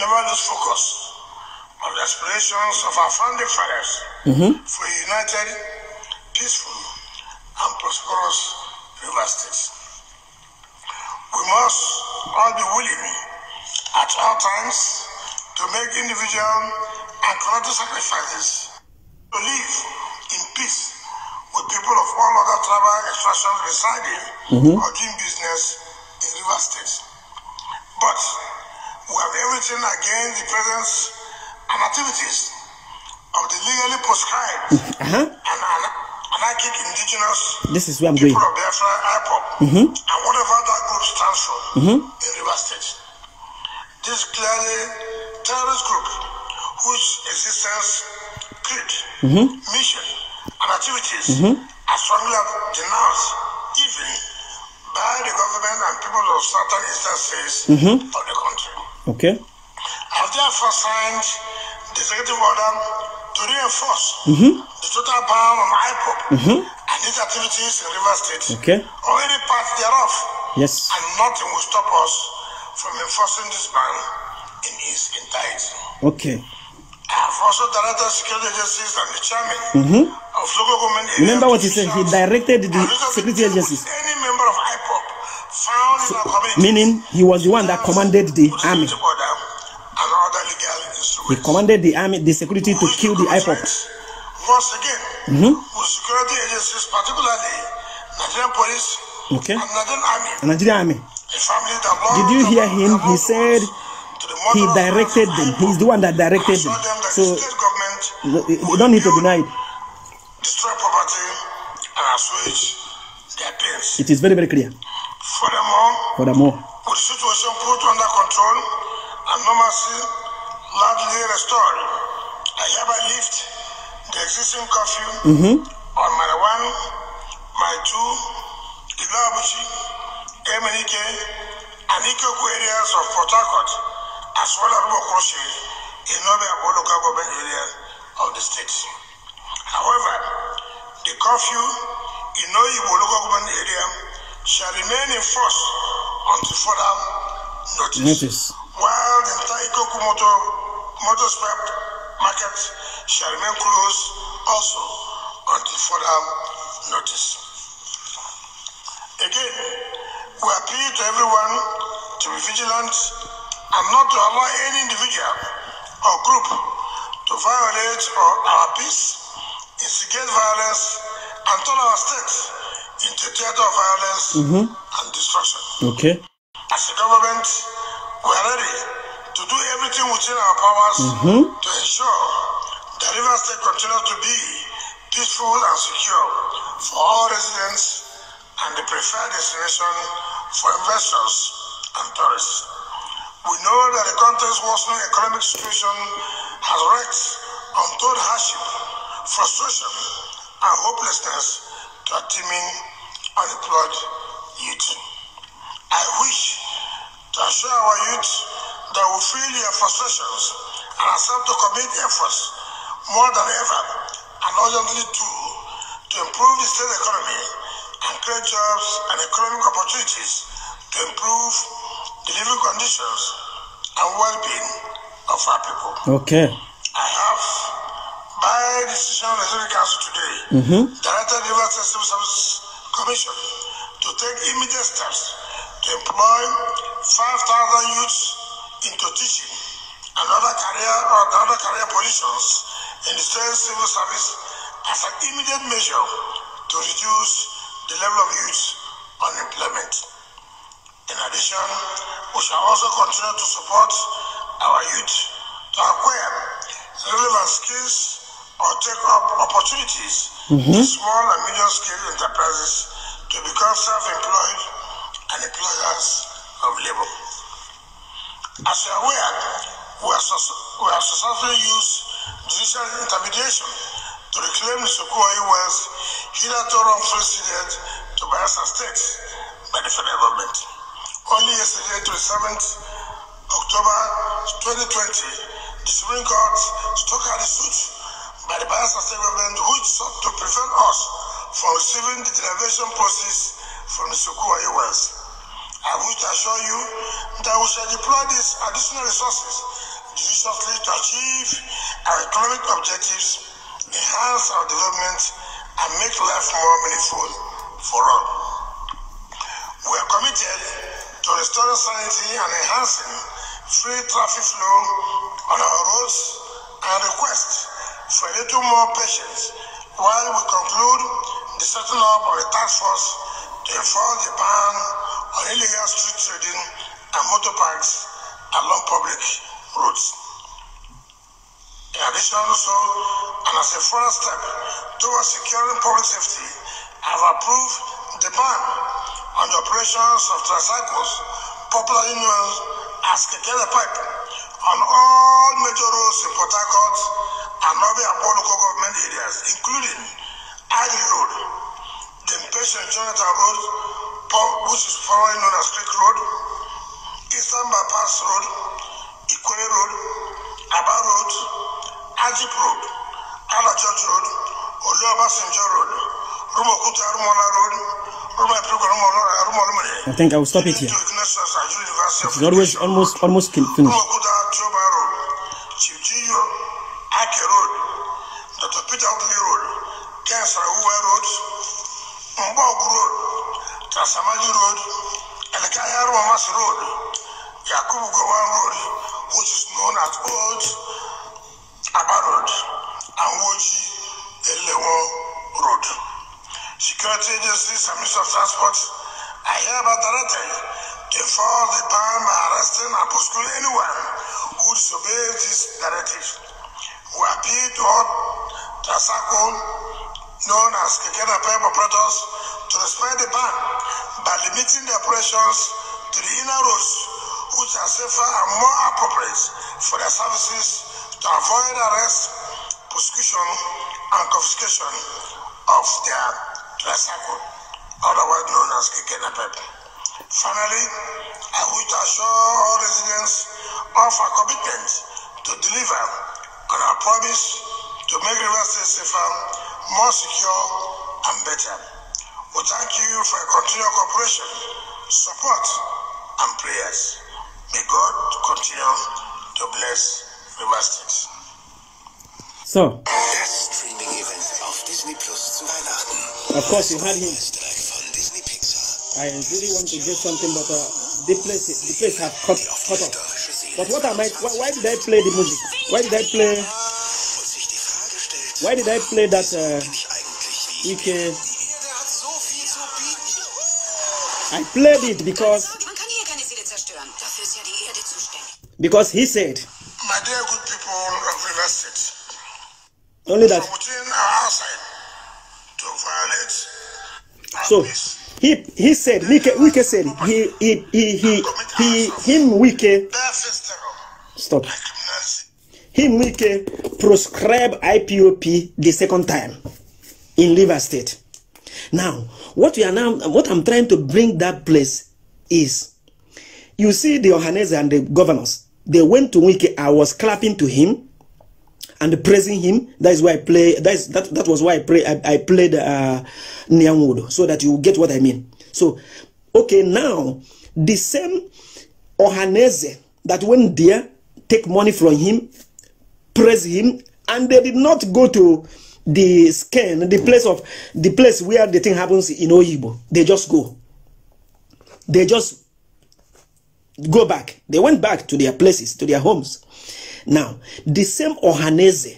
never lose focus on the aspirations of our founding fathers mm-hmm. for a united, peaceful, and prosperous River State we must all be willing at all times to make individual and collective sacrifices to live in peace with people of all other tribal extractions residing mm-hmm. or doing business in River State. But we have everything against the presence and activities of the legally prescribed [laughs] uh-huh. and, and Indigenous This is where I'm people going. of Biafra, IPOP, mm-hmm. and whatever that group stands for mm-hmm. in River State. This clearly terrorist group whose existence, creed, mm-hmm. mission, and activities mm-hmm. are strongly denounced even by the government and people of certain instances mm-hmm. of the country. Okay. I've therefore signed the executive order to reinforce mm-hmm. the total power of IPOP mm-hmm. and its activities in River State. Okay. Already part thereof. Yes. And nothing will stop us from enforcing this ban in its entirety. Okay. I have also directed security agencies and the chairman mm-hmm. of local government. Remember what he said? He directed the security agencies. Any member of IPOP found so, in our community. Meaning he was the one that commanded the army. Order, He commanded the army, the security to kill the IPOP. Once again, mm-hmm. security agencies, particularly Nigerian police okay. and Nigerian army. Nigerian army. Did you hear him? He said he directed them. He's the one that directed them. so eh, you don't need to deny it. Destroy property and assuage their pains. It is very, very clear. Furthermore, Furthermore with the situation put under control Anomaly normalcy largely restored. I hereby lift the existing curfew mm-hmm. on my 1, Mile 2, Ilabuchi, MNK, and Ikoku areas of Port Harcourt, as well as Bokoshi in Northern Abo local government area of the state. However, the curfew in Oyibo local government area shall remain in force until further notice. notice. While the Taikoku Motor Motorsport Market shall remain closed also until further notice. Again, we appeal to everyone to be vigilant and not to allow any individual or group to violate our peace, instigate violence, and turn our state into a theater of violence mm -hmm. and destruction. Okay. As a government, we are ready to do everything within our powers mm-hmm. to ensure that River State continues to be peaceful and secure for all residents and the preferred destination for investors and tourists. We know that the country's worsening economic situation has wreaked untold hardship, frustration, and hopelessness to a teeming unemployed youth. I wish to assure our youth that we feel their frustrations and accept to commit efforts more than ever and urgently too to improve the state economy and create jobs and economic opportunities to improve the living conditions and well-being of our people. Okay. I have, by decision of the Senate Council today, mm-hmm. directed the River System Service Commission to take immediate steps to employ 5,000 youths into teaching and other career or other career positions in the state civil service as an immediate measure to reduce the level of youth unemployment. In addition, we shall also continue to support our youth to acquire relevant skills or take up opportunities mm -hmm. in mm-hmm. small and medium scale enterprises to become self employed and employers of labor. As you are aware, we are, we are successfully used judicial intermediation to reclaim the Sokoa wealth hitherto wrongfully ceded to Bayelsa State by the federal government. Only yesterday, 27th October 2020, the Supreme Court struck out the suit by the Bayelsa State government which sought to prevent us from receiving the derivation process from the Sokoa wealth. I wish to assure you that we shall deploy these additional resources judiciously to achieve our economic objectives, enhance our development, and make life more meaningful for all. We are committed to restoring sanity and enhancing free traffic flow on our roads and request for a little more patience while we conclude the setting up of a task force to enforce the ban on illegal street trading and motor parks along public roads. In addition, also, and as a further step towards securing public safety, I have approved the ban on the operations of tricycles, popularly known as Kekele Pipe, on all major roads in Port Harcourt and other Abo local government areas, including Agri Road, the Impatient Jonathan Road, which is formerly known as Creek Road, Eastern Bypass Road, Ikore Road, Aba Road, Ajip Road, Ala Church Road, Oluoba Sinjo Road, Rumokuta Rumola Road, I think I will stop it here. It's always almost almost finished. Tasamagi Road, Elekaya Romas Road, Yakubu Gowan Road, which is known as Old Abba Road, and Woji Elewo Road. Security agencies and Minister of Transport are hereby directed to enforce the ban by arresting and prosecuting anyone who disobeys this directive. We appeal to all Tasako known as Kekena Pep operators to respect the ban by limiting their operations to the inner roads, which are safer and more appropriate for their services to avoid arrest, prosecution, and confiscation of their tricycle, otherwise known as Kikenapep. Finally, I wish to assure all residents of our commitment to deliver on our promise to make the State safer, more secure, and better. We thank you for your continued cooperation, support, and prayers. May God continue to bless River State. So, Streaming-Event Disney Plus Weihnachten. Of course, you had him. I really want to get something, but uh, the place, the place has cut, cut off. But what am I? Why, why did I play the music? Why did I play? Why did I play that? Uh, I played it because because he said my dear good people of only that so he he said Wike said he he he he, he him Wike stop him Wike proscribe IPOP the second time in liver State now, what we are now, what I'm trying to bring that place is, you see the Johannes and the governors, they went to Wiki, I was clapping to him and praising him. That is why I play, that, is, that, that was why I, pray. I, I played uh, Nyangudo, so that you get what I mean. So, okay, now, the same Ohaneze that went there, take money from him, praise him, and they did not go to the scan, the hmm. place of the place where the thing happens in Oyibo. They just go. They just go back. They went back to their places, to their homes. Now, the same Ohaneze,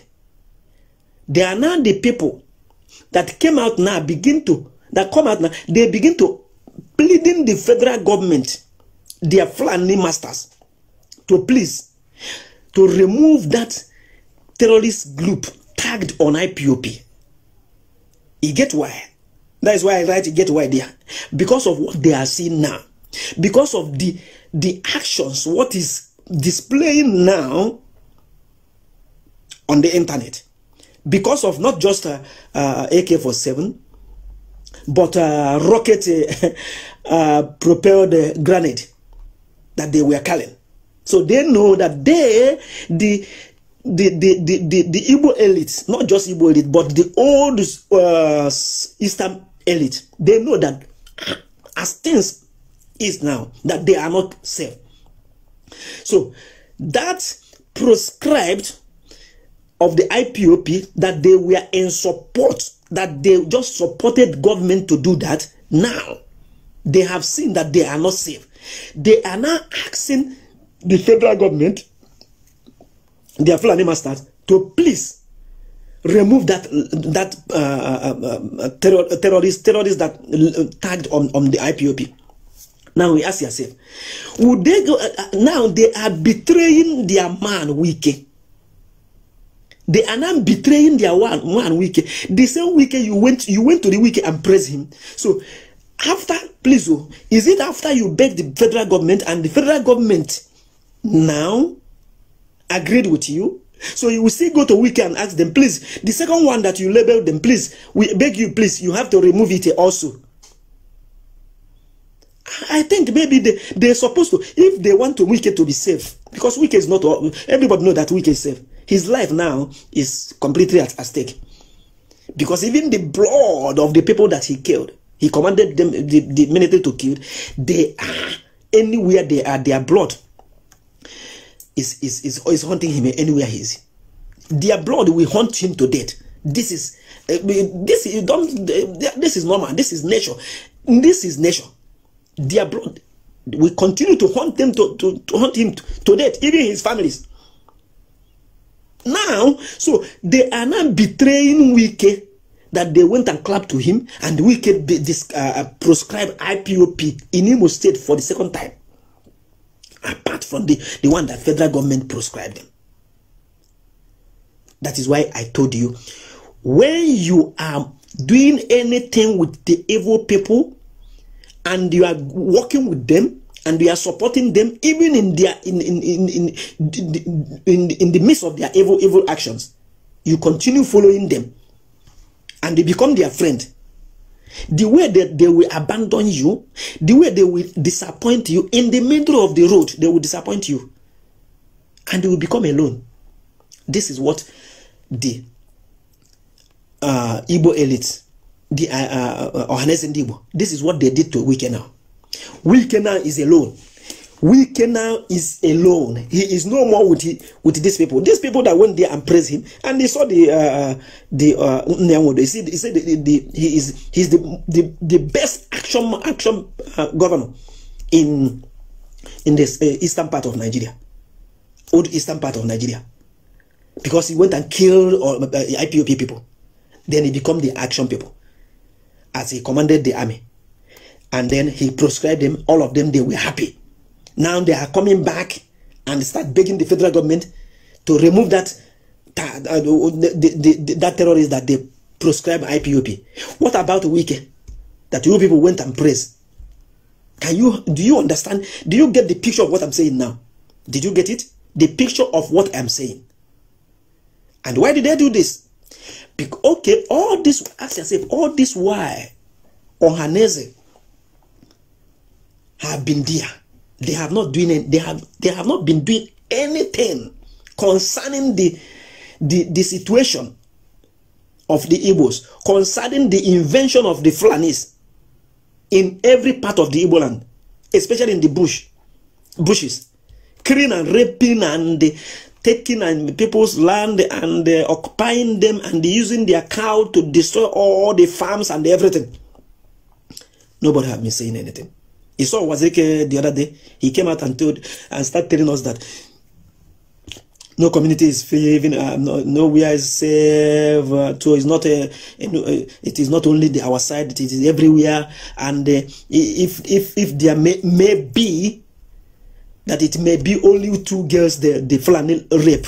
they are now the people that came out now, begin to, that come out now, they begin to pleading the federal government, their Fulani masters, to please, to remove that terrorist group tagged on IPOP. You get why? That is why I write get why there. Because of what they are seeing now. Because of the, the actions, what is displaying now on the internet. Because of not just uh, uh, AK-47, but uh, rocket [laughs] uh, propelled uh, grenade that they were carrying. So they know that they, the the, the, the, the, the Igbo not just Igbo elite, but the old uh, Eastern elite, they know that as things is now, that they are not safe. So that proscribed of the IPOP that they were in support, that they just supported government to do that, now they have seen that they are not safe. They are now asking the federal government their Fulani masters to please remove that that uh, uh, uh, uh terror, uh, terrorist terrorist that tagged on on the IPOP. Now we ask yourself, would they go? Uh, now they are betraying their man Wiki. They are now betraying their one one Wiki. The same Wiki you went you went to the Wiki and praise him. So after please, oh, is it after you beg the federal government and the federal government now agreed with you. So you will still go to Wiki and ask them, please, the second one that you label them, please, we beg you, please, you have to remove it also. I think maybe they, they're supposed to, if they want to Wiki to be safe, because Wiki is not, everybody know that Wiki is safe. His life now is completely at, at stake. Because even the blood of the people that he killed, he commanded them, the, the military to kill, they are, anywhere they are, their blood is, is, is, is haunting him anywhere he is. Their blood will haunt him to death. This is eh, this is don't eh, this is normal. This is nature. This is nature. Their blood will continue to haunt them to, to, to haunt him to, death, even his families. Now, so they are now betraying wicked that they went and clapped to him, and wicked this, uh, uh proscribed IPOP in Imo State for the second time apart from the, the one that federal government prescribed them. That is why I told you, when you are doing anything with the evil people and you are working with them and you are supporting them even in their in in in in, in, in, in the midst of their evil evil actions, you continue following them and they become their friend the way that they will abandon you, the way they will disappoint you in the middle of the road, they will disappoint you and you will become alone. This is what the uh, Igbo elites, the uh, uh, uh Ohanes and this is what they did to Wike now. is alone. can now is alone. He is no more with he, with these people. These people that went there and praised him, and they saw the uh, the uh, He said, he said the, the, the, he is he's the, the the best action action uh, governor in in this uh, eastern part of Nigeria, old eastern part of Nigeria, because he went and killed all uh, uh IPOP people. Then he became the action people, as he commanded the army, and then he proscribed them. All of them they were happy now they are coming back and start begging the federal government to remove that uh, that, that terrorist that they proscribed IPOP. What about Wike that you people went and praised? Can you do you understand? Do you get the picture of what I'm saying now? Did you get it? The picture of what I'm saying. And why did they do this? Because, okay, all this, ask yourself, all this why Ohaneze have been there they have not doing it, they have they have not been doing anything concerning the the, the situation of the Igbos, concerning the invention of the Fulanis in every part of the Igbo land, especially in the bush, bushes, killing and raping and taking and people's land and uh, occupying them and using their cow to destroy all the farms and everything. Nobody have been saying anything. He saw Wazeki the other day. He came out and told and started telling us that no community is free, even uh, no, nowhere is safe. Uh, so it's not a, a, a, uh, it is not only the, our side; it is everywhere. And uh, if if if there may, may be that it may be only two girls the the flannel rape,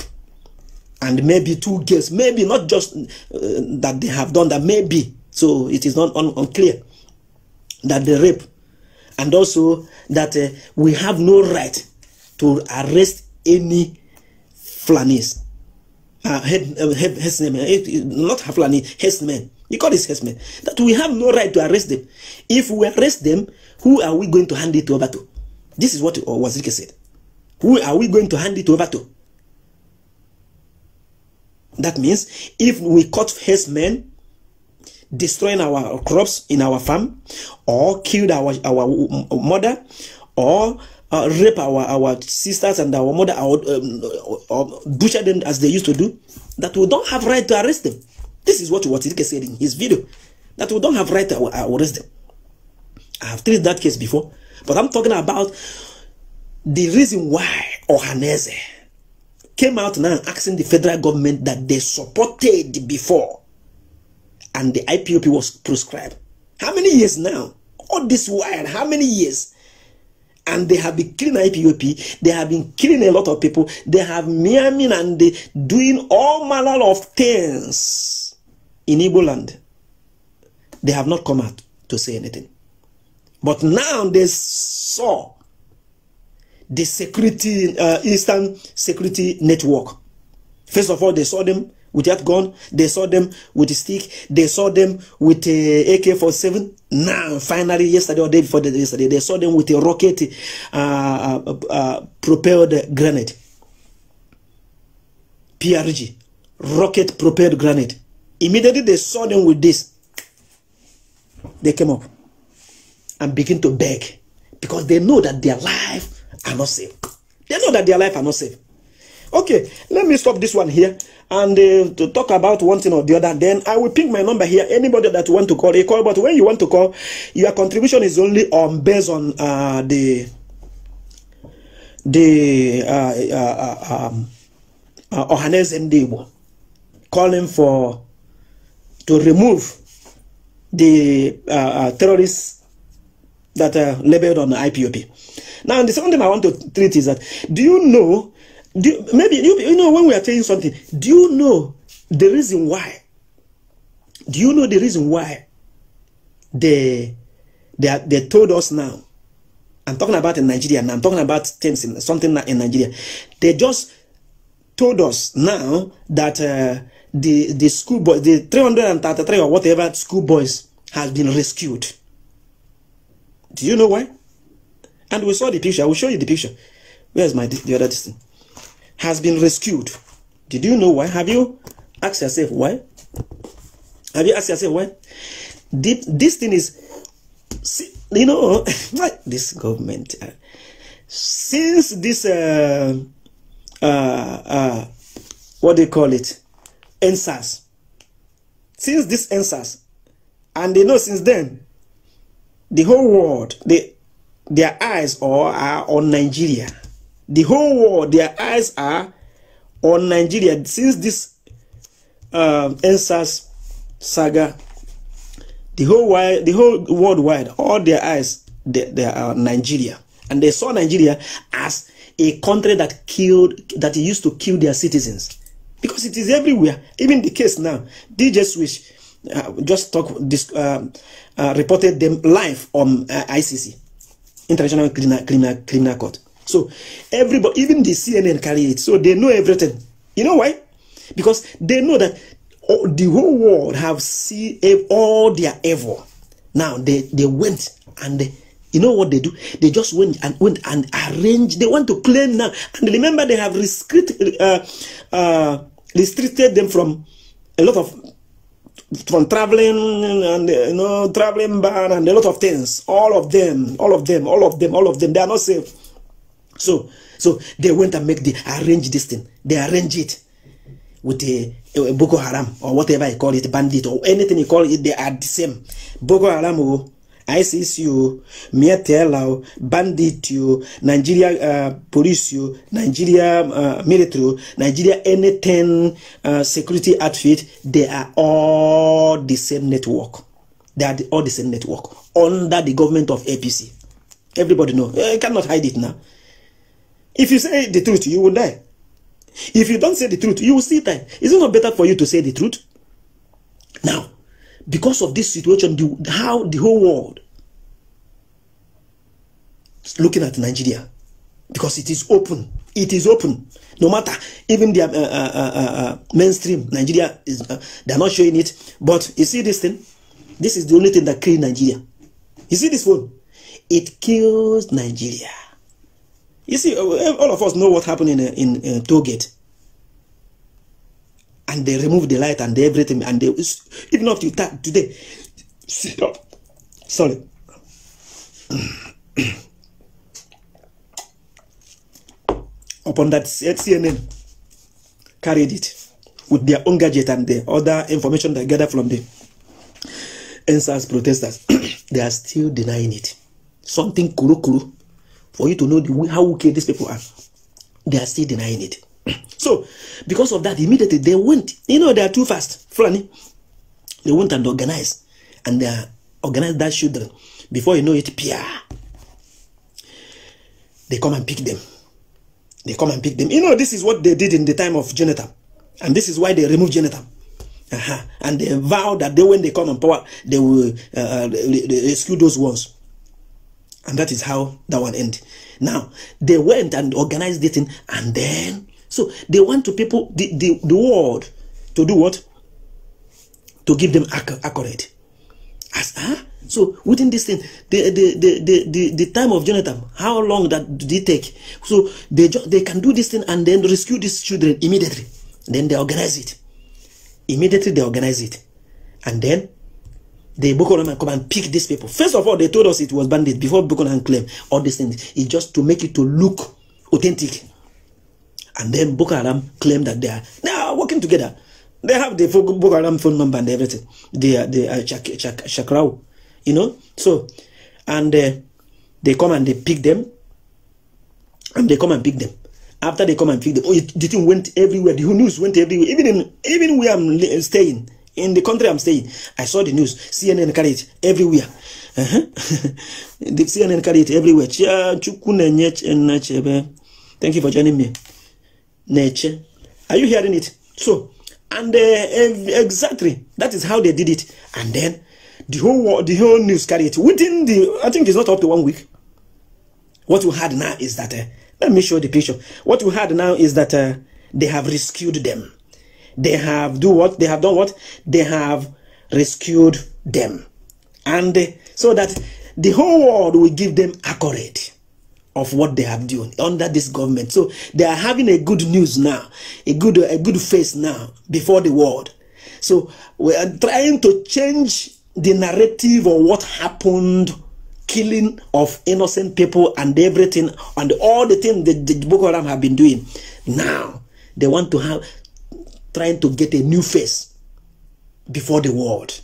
and maybe two girls, maybe not just uh, that they have done that, maybe. So it is not un unclear that the rape and also that uh, we have no right to arrest any flannies. Uh, head, uh, head, headsmen, eh, not Haflani, headsmen. He called his headsmen. That we have no right to arrest them. If we arrest them, who are we going to hand it over to? This is what uh, Wazirike said. Who are we going to hand it over to? That means if we caught headsmen, destroying our crops in our farm or killed our, our mm, mother or uh, rape our, our sisters and our mother or, um, or butcher them as they used to do, that we don't have right to arrest them. This is what Watirike said in his video, that we don't have right to uh, arrest them. I have treated that case before, but I'm talking about the reason why Ohaneze came out now asking the federal government that they supported before and the IPOP was prescribed. How many years now? All this while, how many years? And they have been killing IPOP. They have been killing a lot of people. They have miaming and they doing all manner of things in Igbo land. They have not come out to say anything. But now they saw the security, uh, Eastern Security Network. First of all, they saw them with that gun. They saw them with a stick. They saw them with a AK-47. Now, finally, yesterday or day before yesterday, they saw them with a rocket uh, uh, uh, propelled grenade. PRG, rocket propelled grenade. Immediately they saw them with this. They came up and begin to beg because they know that their life are not safe. They know that their life are not safe. Okay, let me stop this one here and uh, to talk about one thing or the other. Then I will pick my number here. Anybody that want to call, a call. But when you want to call, your contribution is only on um, based on uh, the the uh, uh, uh um, uh, Ohanes Ndebo calling for to remove the uh, uh, terrorists that are uh, labeled on the IPOP. Now, the second thing I want to treat is that do you know do, maybe you, you know when we are telling something, do you know the reason why? Do you know the reason why they they they told us now? I'm talking about in Nigeria now. I'm talking about things in something in Nigeria. They just told us now that uh, the the school boys, the 333 or whatever school boys has been rescued. Do you know why? And we saw the picture. I will show you the picture. Where's my the other thing? has been rescued. Did you know why? Have you asked yourself why? Have you asked yourself why? Deep, this thing is, you know, [laughs] this government. Uh, since this, uh, uh, uh, what do you call it, answers. Since this answers, and they know since then, the whole world, they, their eyes are, are on Nigeria. The whole world, their eyes are on Nigeria since this um, NSAS saga. The whole wide, the whole worldwide, all their eyes they, they are Nigeria, and they saw Nigeria as a country that killed, that used to kill their citizens, because it is everywhere. Even the case now, DJ Swish uh, just talk this, uh, uh, reported them live on uh, ICC, International Criminal Criminal Criminal Court. So everybody, even the CNN carry it. So they know everything. You know why? Because they know that all, oh, the whole world have seen all their evil. Now they, they went and they, you know what they do? They just went and went and arranged. They want to claim now. And remember, they have uh, uh, restricted them from a lot of from traveling and uh, you know traveling ban and a lot of things. All of them, all of them, all of them, all of them. They are not safe. So, so they went and make the arrange this thing. They arrange it with a, a Boko Haram or whatever you call it, bandit or anything you call it. They are the same. Boko Haram, oh, ISIS, you, oh, Miatela, bandit, you, oh, Nigeria uh, police, you, oh, Nigeria uh, military, Nigeria anything uh, security outfit. They are all the same network. They are the, all the same network under the government of APC. Everybody know. You eh, cannot hide it now. If you say the truth, you will die. If you don't say the truth, you will still die. Is it not better for you to say the truth? Now, because of this situation, the, how the whole world is looking at Nigeria, because it is open. It is open. No matter, even the uh uh, uh, uh, uh, mainstream, Nigeria, is uh, they're not showing it. But you see this thing? This is the only thing that kills Nigeria. You see this one. It kills Nigeria. You see, uh, all of us know what happened in, uh, in, uh, Togate. And they removed the light and everything. And they, even up to that today, sit up. Oh, sorry. [clears throat] Upon that CNN carried it with their own gadget and the other information they gathered from the NSAS protesters. [clears throat] they are still denying it. Something kuru kuru for you to know the way, how wicked these people are. They are still denying it. [clears throat] so, because of that, immediately they went. You know, they are too fast. Funny. They went and organized. And they organized that children. Before you know it, Pia. They come and pick them. They come and pick them. You know, this is what they did in the time of Jonathan. And this is why they removed Jonathan. Uh -huh. And they vow that they, when they come on power, they will uh, rescue uh, those ones. And that is how that one end. Now, they went and organized this thing, and then, so they want to people, the, the, the world, to do what? To give them accurate. As, huh? So within this thing, the, the, the, the, the, the, time of Jonathan, how long that did it take? So they, they can do this thing and then rescue these children immediately. Then they organize it. Immediately they organize it. And then the Boko Haram come and pick these people. First of all, they told us it was bandits before Boko Haram claimed all these things. It's just to make it to look authentic. And then Boko Haram claimed that they are now working together. They have the Boko Haram phone number and everything. They are the uh, Chak, Chakrao, you know. So, and uh, they come and they pick them, and they come and pick them. After they come and pick them, oh, it, the thing went everywhere. The news went everywhere. Even in, even where I'm staying in the country I'm staying. I saw the news. CNN carried it everywhere. Uh -huh. [laughs] the CNN carried it everywhere. Eh, eh, eh. Thank you for joining me. Nature. Are you hearing it? So, and uh, exactly that is how they did it. And then the whole world, the whole news carried it within the. I think it's not up to one week. What we had now is that. Uh, let me show the picture. What we had now is that they have rescued them. They have do what? They have done what? They have rescued them. And so that the whole world will give them accurate of what they have done under this government. So they are having a good news now, a good a good face now before the world. So we are trying to change the narrative of what happened, killing of innocent people and everything and all the things that the Boko Haram have been doing. Now they want to have trying to get a new face before the world.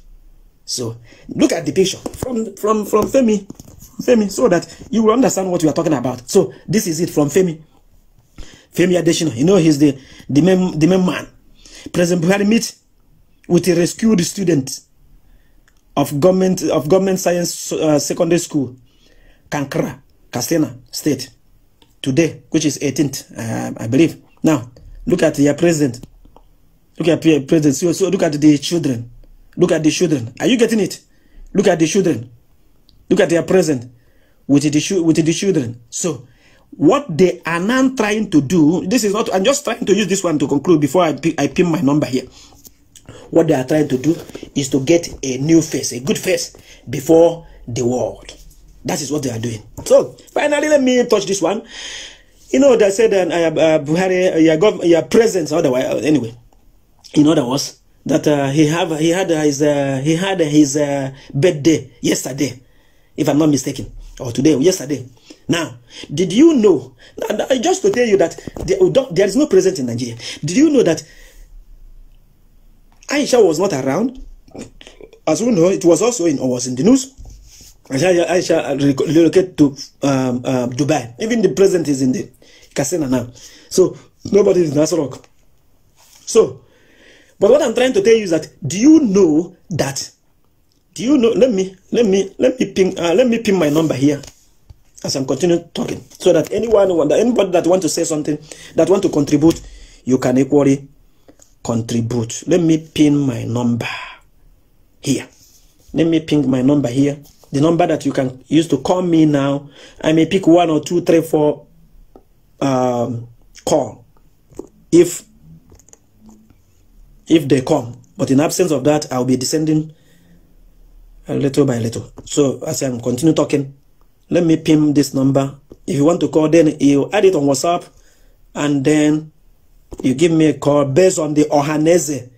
So look at the picture from from from Femi, Femi, so that you will understand what we are talking about. So this is it from Femi, Femi Adesina. You know he's the the main the main man. President Buhari meet with a rescued student of government of government science uh, secondary school, Kankra, Katsina State, today, which is 18th, uh, I believe. Now look at your president Look at present. So, so look at the children. Look at the children. Are you getting it? Look at the children. Look at their present with the with the children. So what they are now trying to do, this is not, I'm just trying to use this one to conclude before I, I pin my number here. What they are trying to do is to get a new face, a good face before the world. That is what they are doing. So finally, let me touch this one. You know, they said that uh, uh, Buhari, uh, your, your presence, otherwise, anyway. In other words, that uh, he have he had uh, his uh, he had uh, his uh, birthday yesterday, if I'm not mistaken, or today or yesterday. Now, did you know? Just to tell you that there, there is no president in Nigeria. Did you know that Aisha was not around? As we know, it was also in was in the news. Aisha, Aisha uh, relocated to um, uh, Dubai. Even the president is in the casino now. So nobody is in Nasrok. So but what I'm trying to tell you is that do you know that? Do you know? Let me let me let me ping uh, let me ping my number here as I'm continuing talking, so that anyone that anybody that want to say something that want to contribute, you can equally contribute. Let me pin my number here. Let me ping my number here. The number that you can use to call me now. I may pick one or two, three, four um, call if if they come. But in absence of that, I'll be descending little by little. So as I'm continue talking, let me pin this number. If you want to call, then you add it on WhatsApp, and then you give me a call based on the Ohanese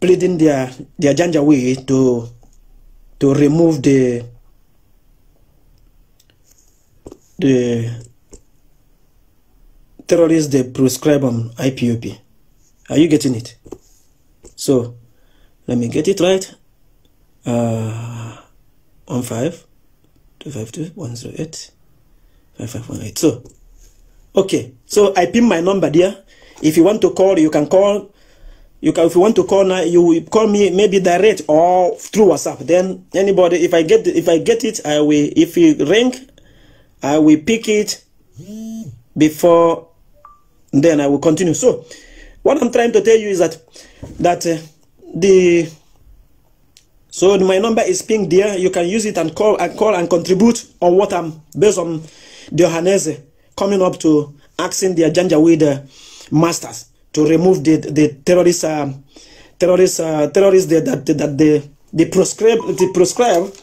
pleading their their way to to remove the the terrorists they prescribe on IPOP. Are you getting it? So, let me get it right. Uh, 15 So, okay. So, I pin my number there. If you want to call, you can call. You can, if you want to call now, you call me maybe direct or through WhatsApp. Then anybody, if I get if I get it, I will. If you ring, I will pick it before. Then I will continue. So what I'm trying to tell you is that that uh, the so my number is pinged there. You can use it and call and call and contribute on what I'm based on the Johannes coming up to asking the with uh, masters to remove the the terrorist uh, terrorist uh, terrorist that that, the the they prescribe they prescribe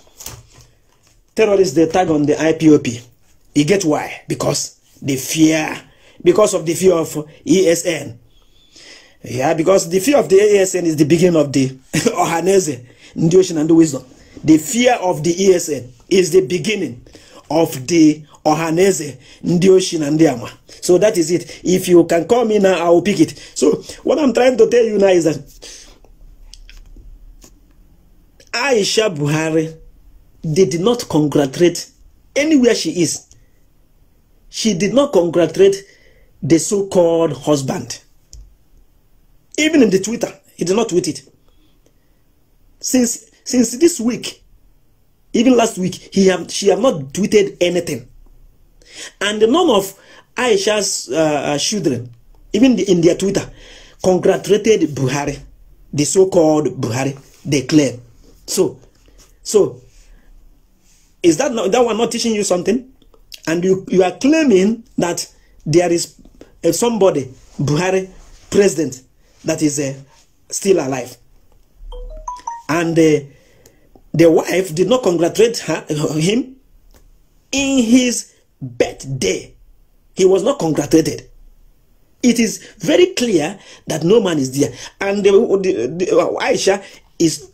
terrorists they tag on the IPOP. You get why? Because they fear because of the fear of ESN yeah, because the fear of the ASN [laughs] is the beginning of the Ohaneze, the ocean and the wisdom. The fear of the ASN is the beginning of the Ohaneze, the ocean and the Ama. So that is it. If you can call me now, I will pick it. So what I'm trying to tell you now is that Aisha Buhari they did not congratulate anywhere she is. She did not congratulate the so-called husband. Even in the Twitter, he did not tweet it. Since since this week, even last week, he have she have not tweeted anything. And none of Aisha's uh, uh, children, even the, in their Twitter, congratulated Buhari, the so-called Buhari, they claim. So, so is that not, that one not teaching you something? And you you are claiming that there is uh, somebody Buhari president that is uh, still alive. And uh, the wife did not congratulate her, uh, him in his birthday. He was not congratulated. It is very clear that no man is there. And the, the, the uh, Aisha is,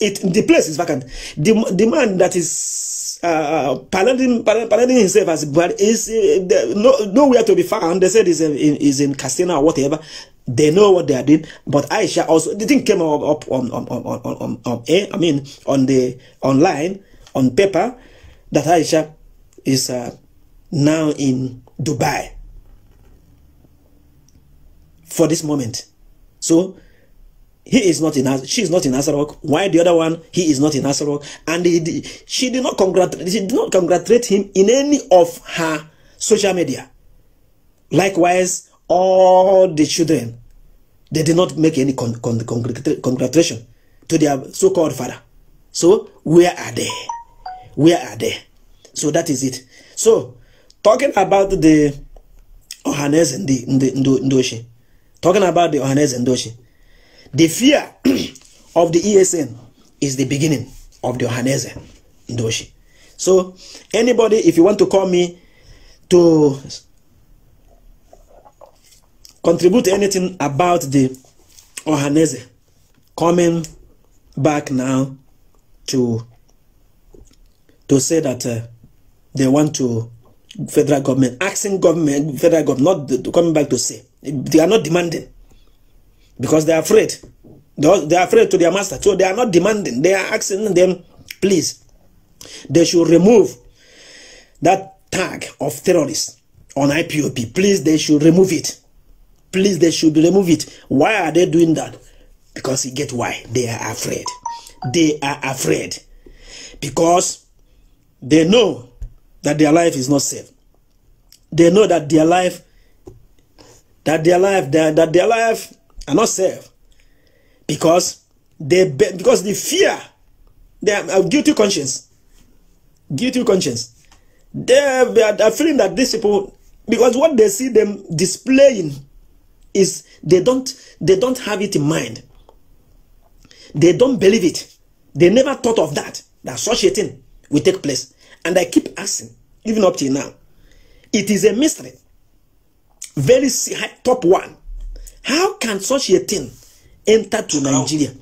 it, the place is vacant. The, the man that is uh, parading, parading himself as but is uh, the, no, nowhere to be found. They said is in, is in Castina or whatever. They know what they are doing. But Aisha also, the thing came up, up on, on, on, on, on, on, I mean, on the online, on paper, that Aisha is uh, now in Dubai for this moment. So he is not in she is not in Asarok. Why the other one he is not in Asarok? And he, she did not congratulate she did not congratulate him in any of her social media. Likewise, all the children, they did not make any con con congratulation to their so-called father. So where are they? Where are they? So that is it. So talking about the Ohanes and the Ndoshi, talking about the Ohanes and Ndoshi, the fear [clears throat] of the ESN is the beginning of the Ohanese Ndoshi. So anybody, if you want to call me to contribute anything about the Ohaneze coming back now to to say that uh, they want to federal government asking government federal government not the, coming back to say they are not demanding because they are afraid they are, they are afraid to their master so they are not demanding they are asking them please they should remove that tag of terrorists on IPOP please they should remove it Please, they should remove it. Why are they doing that? Because you get why? They are afraid. They are afraid. Because they know that their life is not safe. They know that their life, that their life, that, that their life are not safe. Because they, because the fear, they are uh, guilty conscience. Guilty conscience. They, they are feeling that these people, because what they see them displaying is they don't they don't have it in mind. They don't believe it. They never thought of that. That such a thing will take place. And I keep asking, even up till now, it is a mystery. Very top one. How can such a thing enter to Nigeria?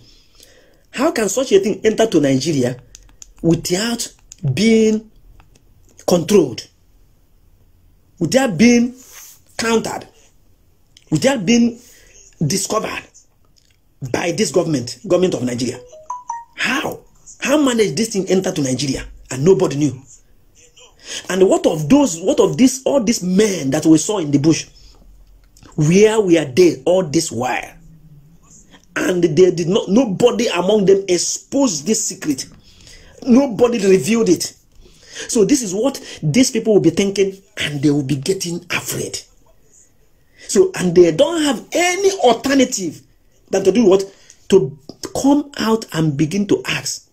How can such a thing enter to Nigeria without being controlled? Without being countered? without being discovered by this government, government of Nigeria. How? How managed this thing enter to Nigeria and nobody knew? And what of those, what of this, all these men that we saw in the bush? Where were they all this while? And they did not, nobody among them exposed this secret. Nobody revealed it. So this is what these people will be thinking and they will be getting afraid. So, and they don't have any alternative than to do what? To come out and begin to ask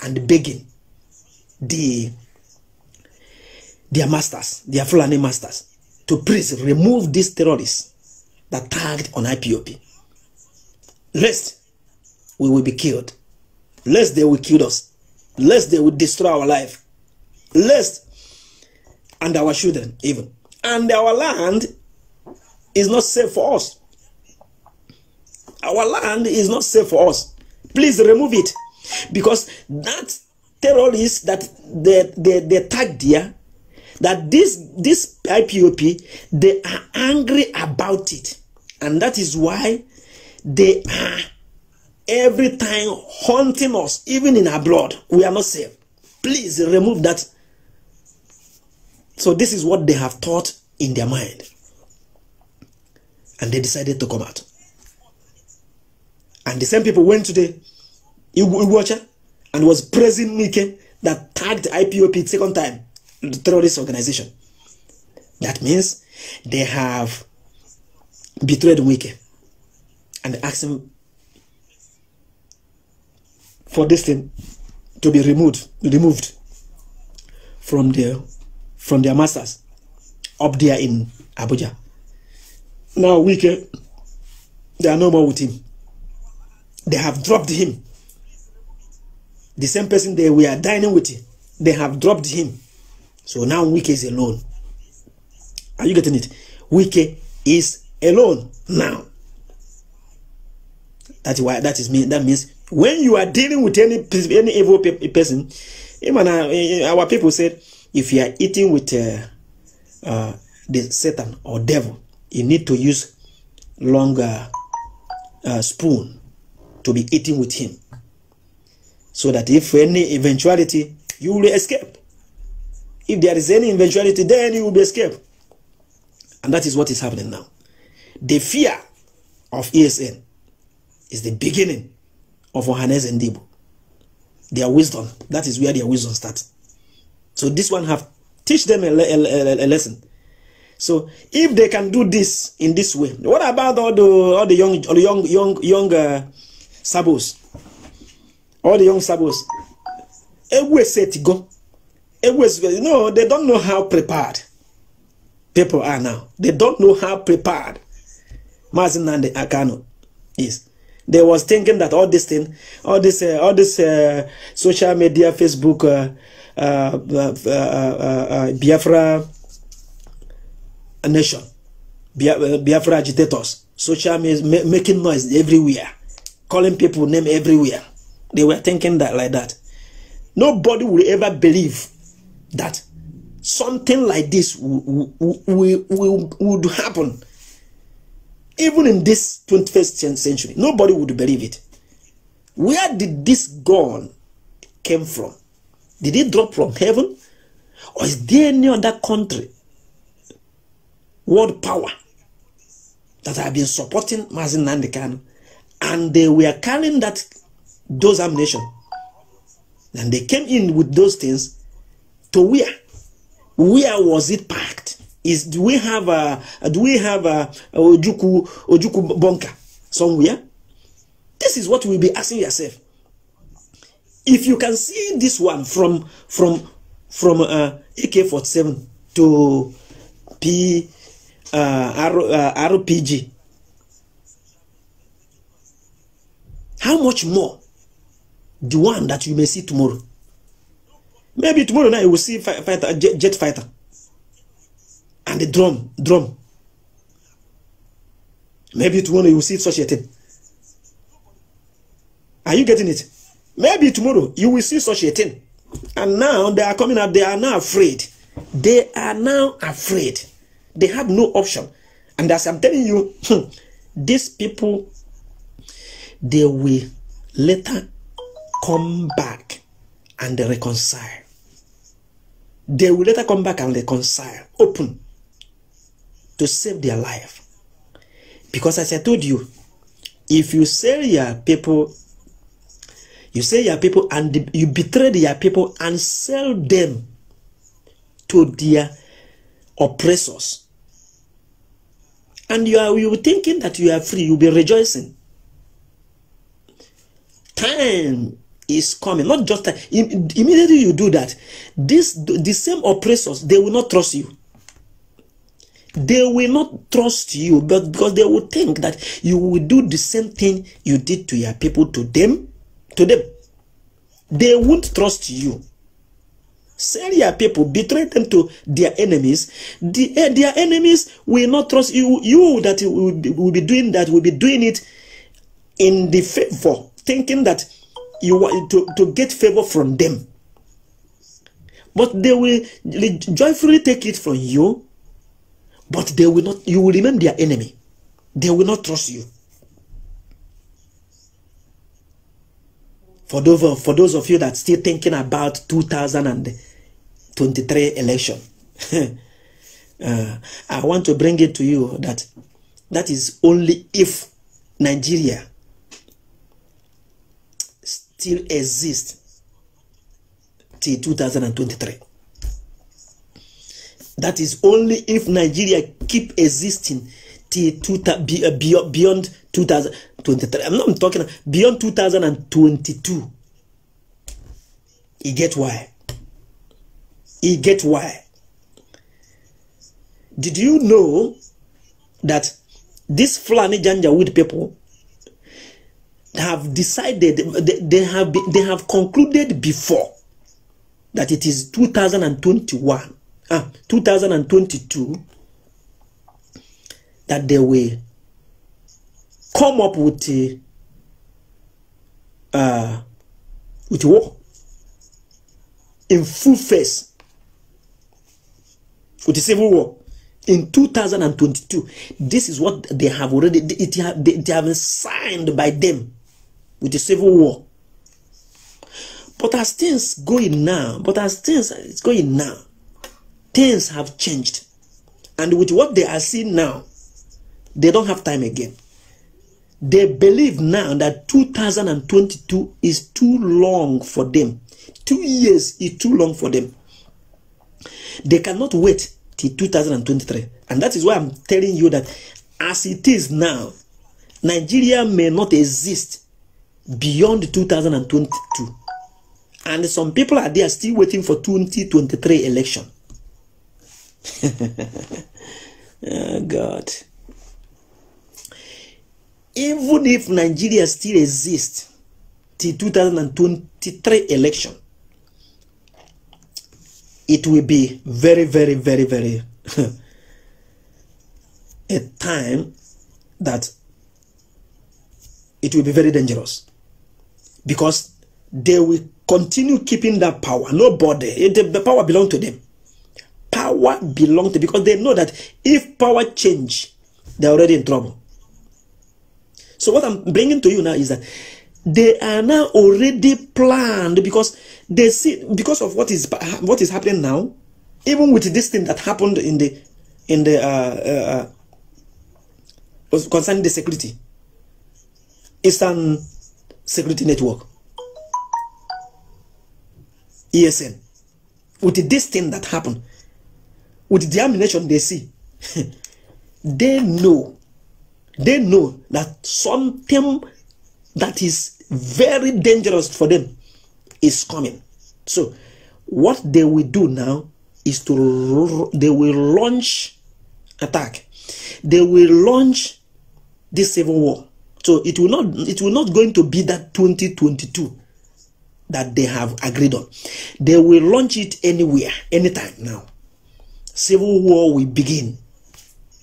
and begging the their masters, their Fulani masters, to please remove these terrorists that tagged on IPOP. Lest we will be killed. Lest they will kill us. Lest they will destroy our life. Lest and our children even. And our land is not safe for us. Our land is not safe for us. Please remove it. Because that terrorist that they, they, they tagged there, that this, this IPOP, they are angry about it. And that is why they are every time haunting us, even in our blood. We are not safe. Please remove that. So this is what they have thought in their mind and they decided to come out. And the same people went to the Iwacha and was praising Mike that tagged IPOP second time, the terrorist organization. That means they have betrayed Wike and asked him for this thing to be removed, removed from their from their masters up there in Abuja. Now, Wicky, they are no more with him. They have dropped him. The same person they were dining with, they have dropped him. So now Wike is alone. Are you getting it? Wike is alone now. That's why that is me. That means when you are dealing with any any evil pe person, even our, uh, eh, eh, our people said, if you are eating with uh, uh, the Satan or devil, you need to use longer uh, spoon to be eating with him so that if any eventuality you will escape if there is any eventuality then you will be escaped and that is what is happening now the fear of esn is the beginning of Ohanes and Debo. Their wisdom, that is where their wisdom starts. So this one have teach them a, a, a, a lesson. So if they can do this in this way, what about all the all the young all the young young young uh, sabos? All the young sabos. Ewe set go. you know, they don't know how prepared people are now. They don't know how prepared Mazinande Akano is. They was thinking that all this thing, all this, uh, all this uh, social media, Facebook, uh, uh, uh, Biafra nation, uh, Biafra agitators, social media, making noise everywhere, calling people name everywhere. They were thinking that like that. Nobody will ever believe that something like this would happen. Even in this 21st century, nobody would believe it. Where did this gun came from? Did it drop from heaven? Or is there any other country world power that have been supporting Mazin Nandekan, and they were carrying that those ammunition. And they came in with those things to where? Where was it packed? Is do we have a do we have a, a Ojuku Ojuku bunker somewhere? This is what we'll be asking yourself. If you can see this one from from from uh, AK-47 to P uh, rpg uh, how much more the one that you may see tomorrow maybe tomorrow night you will see fight, fighter, jet, jet fighter and the drum drum maybe tomorrow you will see such a thing are you getting it maybe tomorrow you will see such a thing and now they are coming out. they are now afraid they are now afraid They have no option. And as I'm telling you, hmm, these people, they will later come back and reconcile. They will later come back and reconcile, open, to save their life. Because as I told you, if you sell your people, you sell your people and you betray your people and sell them to their oppressors, And you are you thinking that you are free, you'll be rejoicing. Time is coming, not just time. Immediately you do that, this the same oppressors they will not trust you. They will not trust you, but because they will think that you will do the same thing you did to your people to them, to them. They won't trust you. Sell your people, betray them to their enemies. The, uh, their enemies will not trust you. You that will be, will be doing that will be doing it in the favor, thinking that you want to, to get favor from them. But they will joyfully take it from you, but they will not, you will remain their enemy. They will not trust you. For those, for those of you that still thinking about 2000 and 23 election. [laughs] uh, I want to bring it to you that that is only if Nigeria still exists till 2023. That is only if Nigeria keep existing till two, uh, uh, beyond 2023. I'm not I'm talking beyond 2022. You get why? He get why. Did you know that this Fulani Janjaweed people have decided, they, they have, they have concluded before that it is 2021, ah, 2022, that they will come up with a, uh, with war in full face with the civil war in 2022 this is what they have already it have, they, they have been signed by them with the civil war but as things going now but as things it's going now things have changed and with what they are seeing now they don't have time again they believe now that 2022 is too long for them two years is too long for them They cannot wait till 2023. And that is why I'm telling you that as it is now, Nigeria may not exist beyond 2022. And some people are there still waiting for 2023 election. [laughs] oh God. Even if Nigeria still exists till 2023 election, it will be very, very, very, very [laughs] a time that it will be very dangerous because they will continue keeping that power. Nobody, body, the power belongs to them. Power belongs to because they know that if power change, they're already in trouble. So what I'm bringing to you now is that they are now already planned because they see because of what is what is happening now, even with this thing that happened in the in the uh, uh, uh concerning the security, Eastern Security Network, ESN, with this thing that happened, with the ammunition they see, [laughs] they know, they know that something that is very dangerous for them is coming. So, what they will do now is to they will launch attack. They will launch this civil war. So it will not it will not going to be that 2022 that they have agreed on. They will launch it anywhere, anytime now. Civil war will begin.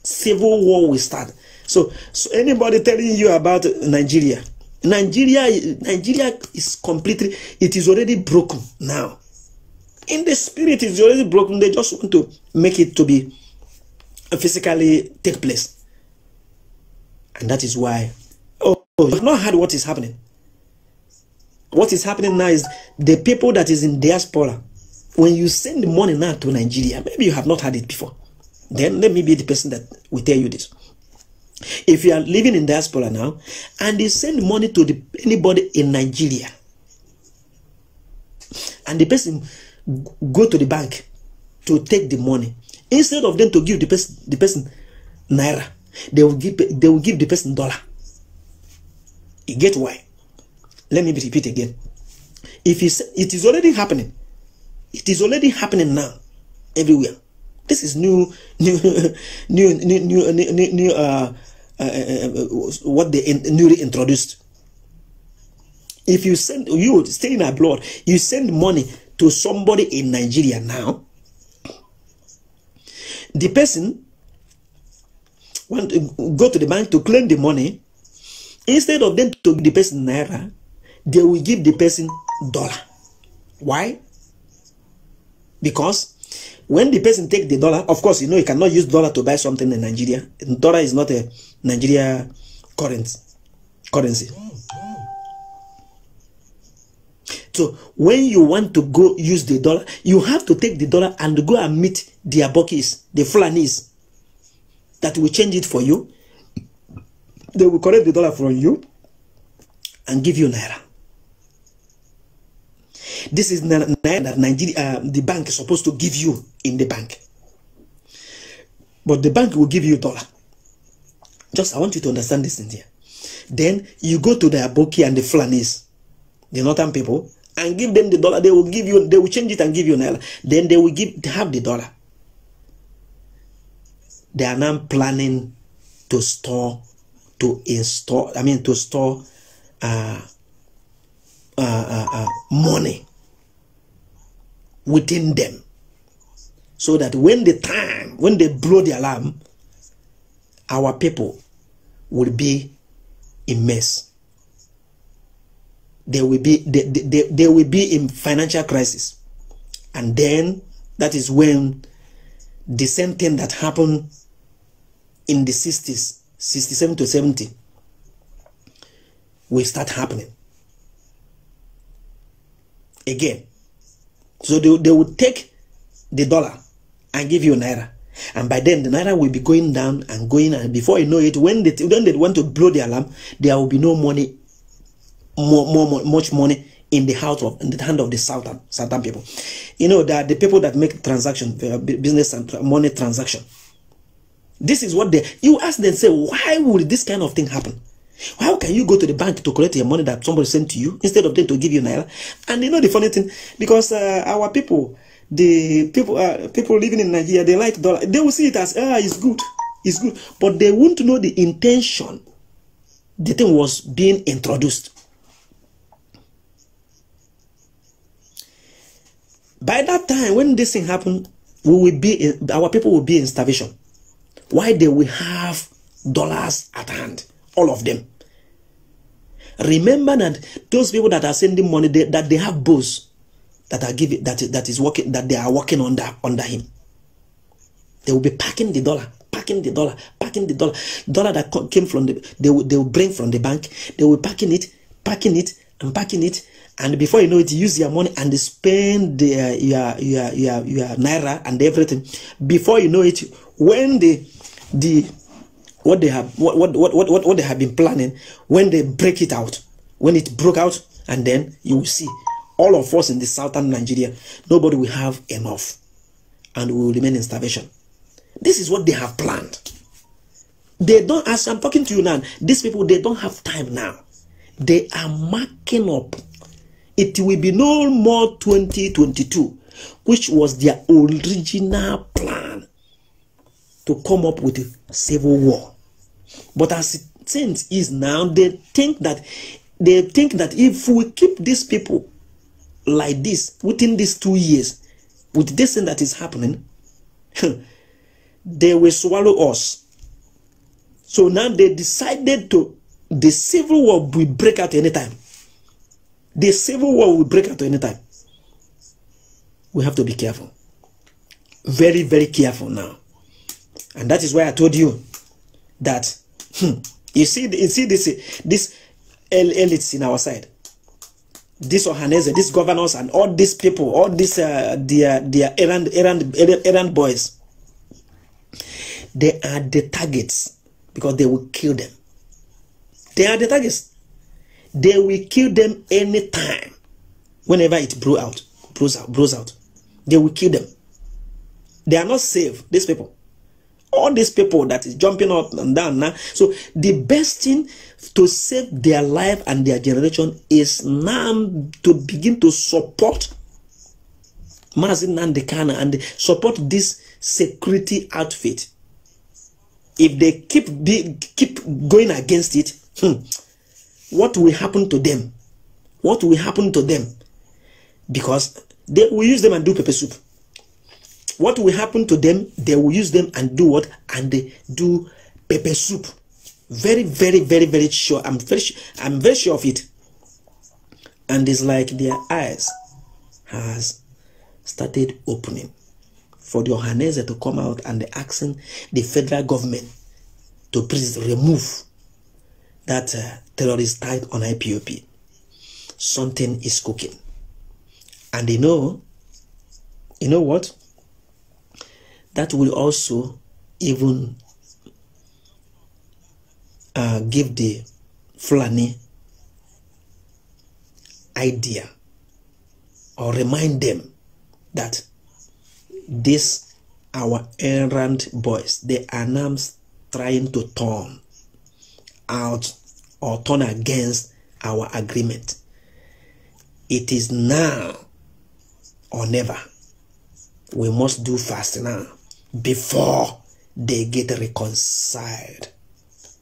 Civil war will start. So, so anybody telling you about Nigeria, Nigeria, Nigeria is completely, it is already broken now. In the spirit, it's already broken. They just want to make it to be physically take place. And that is why, oh, you've not heard what is happening. What is happening now is the people that is in diaspora, when you send money now to Nigeria, maybe you have not heard it before. Then let me be the person that will tell you this. If you are living in diaspora now, and they send money to the, anybody in Nigeria, and the person go to the bank to take the money, instead of them to give the person the person naira, they will give they will give the person dollar. You get why? Let me repeat again. If it's, it is already happening, it is already happening now, everywhere. This is [laughs] new, new, new, new, new, new, new uh uh, uh, uh, uh, what they in, newly introduced. If you send you staying abroad, you send money to somebody in Nigeria now. The person want to go to the bank to claim the money. Instead of them to the person naira, they will give the person dollar. Why? Because when the person take the dollar, of course, you know, you cannot use dollar to buy something in Nigeria. Dollar is not a Nigeria current, currency. So when you want to go use the dollar, you have to take the dollar and go and meet the Abokis, the Fulanis, that will change it for you. They will collect the dollar from you and give you Naira. This is naira that Nigeria, uh, the bank is supposed to give you in the bank. But the bank will give you dollar. Just, I want you to understand this in here. Then you go to the Aboki and the Flanis, the northern people, and give them the dollar. They will give you, they will change it and give you naira. Then they will give, have the dollar. They are now planning to store, to install, I mean, to store uh, uh, uh, uh money within them so that when the time when they blow the alarm our people will be in mess they will be they, they, they will be in financial crisis and then that is when the same thing that happened in the 60s 67 to 70 will start happening again so they, they will take the dollar and give you naira. And by then, the naira will be going down and going. And before you know it, when they, when they want to blow the alarm, there will be no money, more, more, more much money in the house of in the hand of the southern southern people. You know that the people that make transaction, uh, business and money transaction. This is what they. You ask them, say, why would this kind of thing happen? How can you go to the bank to collect your money that somebody sent to you instead of them to give you naira? And you know the funny thing, because uh, our people, the people, uh, people living in Nigeria, they like dollar. They will see it as ah, it's good, it's good, but they won't know the intention. The thing was being introduced. By that time, when this thing happened, we will be in, our people will be in starvation. Why they will have dollars at hand? all of them. Remember that those people that are sending money, they, that they have boss that are giving that that is working that they are working under under him. They will be packing the dollar, packing the dollar, packing the dollar, dollar that came from the they will, they will bring from the bank. They will packing it, packing it, and packing it, and before you know it, use your money and spend their, uh, your your your your naira and everything. Before you know it, when the the what they have what what, what, what what they have been planning when they break it out when it broke out and then you will see all of us in the southern nigeria nobody will have enough and we will remain in starvation this is what they have planned they don't as i'm talking to you now these people they don't have time now they are marking up it will be no more 2022 which was their original plan to come up with a civil war but as it seems is now, they think that they think that if we keep these people like this within these two years, with this thing that is happening, they will swallow us. So now they decided to the civil war will break out any time. The civil war will break out any time. We have to be careful. Very, very careful now. And that is why I told you that Hmm. You see, you see this this elites in our side, this Ohanese, this governors, and all these people, all these uh, their their errand errand errand boys. They are the targets because they will kill them. They are the targets. They will kill them anytime, whenever it blows out, blows out, blows out. They will kill them. They are not safe. These people all these people that is jumping up and down now. So the best thing to save their life and their generation is now to begin to support Mazin Nandekana and support this security outfit. If they keep be, keep going against it, hmm, what will happen to them? What will happen to them? Because they will use them and do pepper soup what will happen to them they will use them and do what and they do pepper soup very very very very sure i'm very i'm very sure of it and it's like their eyes has started opening for the Ohanese to come out and asking the federal government to please remove that uh, terrorist type on IPOP. Something is cooking. And you know, you know what? that will also even uh, give the Fulani idea or remind them that this our errant boys they are now trying to turn out or turn against our agreement it is now or never we must do fast now before they get reconciled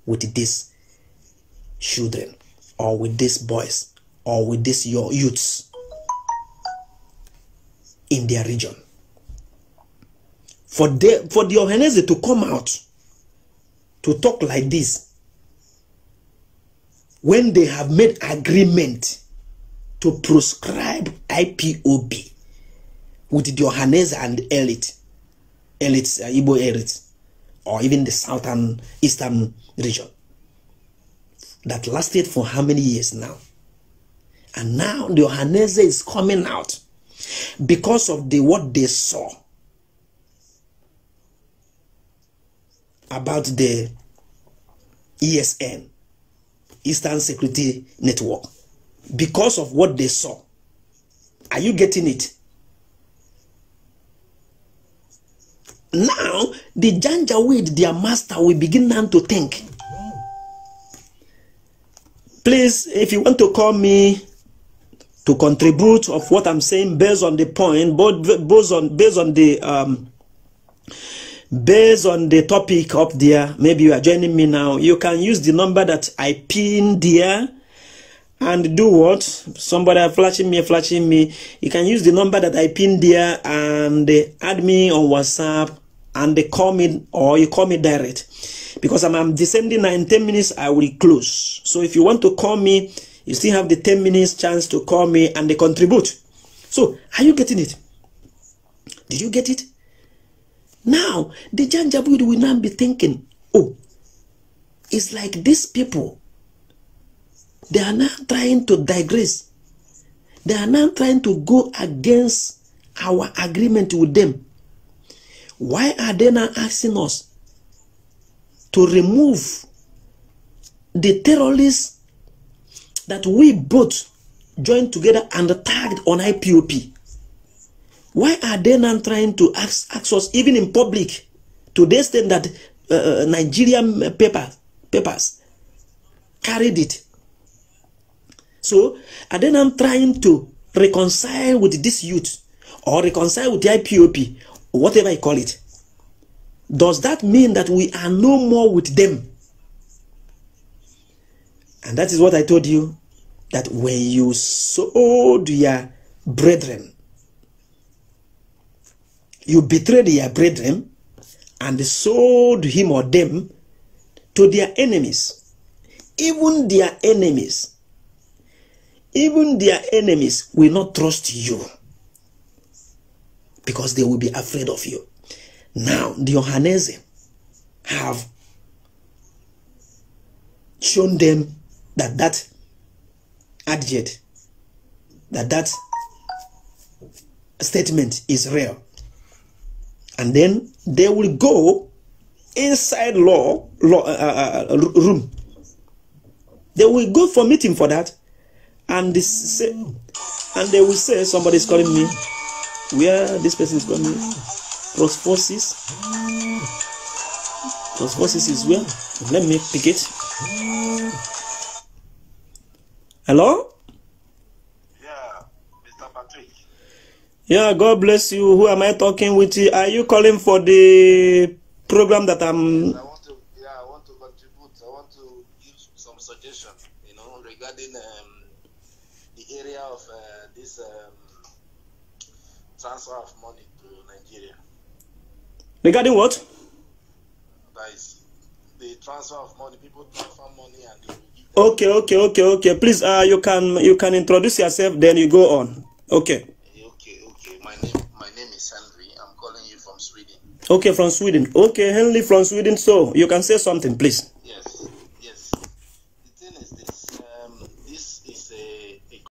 with these children or with these boys or with these your youths in their region. For, the for the Ohanese to come out to talk like this when they have made agreement to proscribe IPOB with the Ohanese and elite elites, uh, Igbo elites, or even the southern, eastern region. That lasted for how many years now? And now the Ohanese is coming out because of the what they saw about the ESN, Eastern Security Network, because of what they saw. Are you getting it? Now, the Janjaweed, their master, will begin now to think. Please, if you want to call me to contribute of what I'm saying based on the point, both based on based on the um, based on the topic up there. Maybe you are joining me now. You can use the number that I pinned there and do what somebody are flashing me flashing me you can use the number that i pinned there and add me on whatsapp and they call me or you call me direct because I'm, I'm descending now in 10 minutes I will close so if you want to call me you still have the 10 minutes chance to call me and they contribute so are you getting it did you get it now the Janjaweed will now be thinking oh it's like these people they are now trying to digress they are now trying to go against our agreement with them why are they not asking us to remove the terrorists that we both joined together and tagged on IPOP? Why are they not trying to ask, ask us, even in public, to the extent that uh, uh, Nigerian paper, papers carried it? So, are they not trying to reconcile with this youth or reconcile with the IPOP whatever you call it, does that mean that we are no more with them? And that is what I told you that when you sold your brethren, you betrayed your brethren and sold him or them to their enemies, even their enemies. Even their enemies will not trust you because they will be afraid of you. Now, the Johannese have shown them that that adject, that that statement is real. And then they will go inside law, law uh, uh, uh room. They will go for meeting for that, and this and they will say somebody's calling me where this person is coming plus Cross forces. Cross forces is where let me pick it hello yeah mr patrick yeah god bless you who am i talking with are you calling for the program that i'm transfer of money to Nigeria. Regarding what? That is the transfer of money. People transfer money and they Okay, okay, okay, okay. Please, uh, you can you can introduce yourself, then you go on. Okay. Okay, okay. My name my name is Henry. I'm calling you from Sweden. Okay, from Sweden. Okay, Henry from Sweden. So you can say something, please.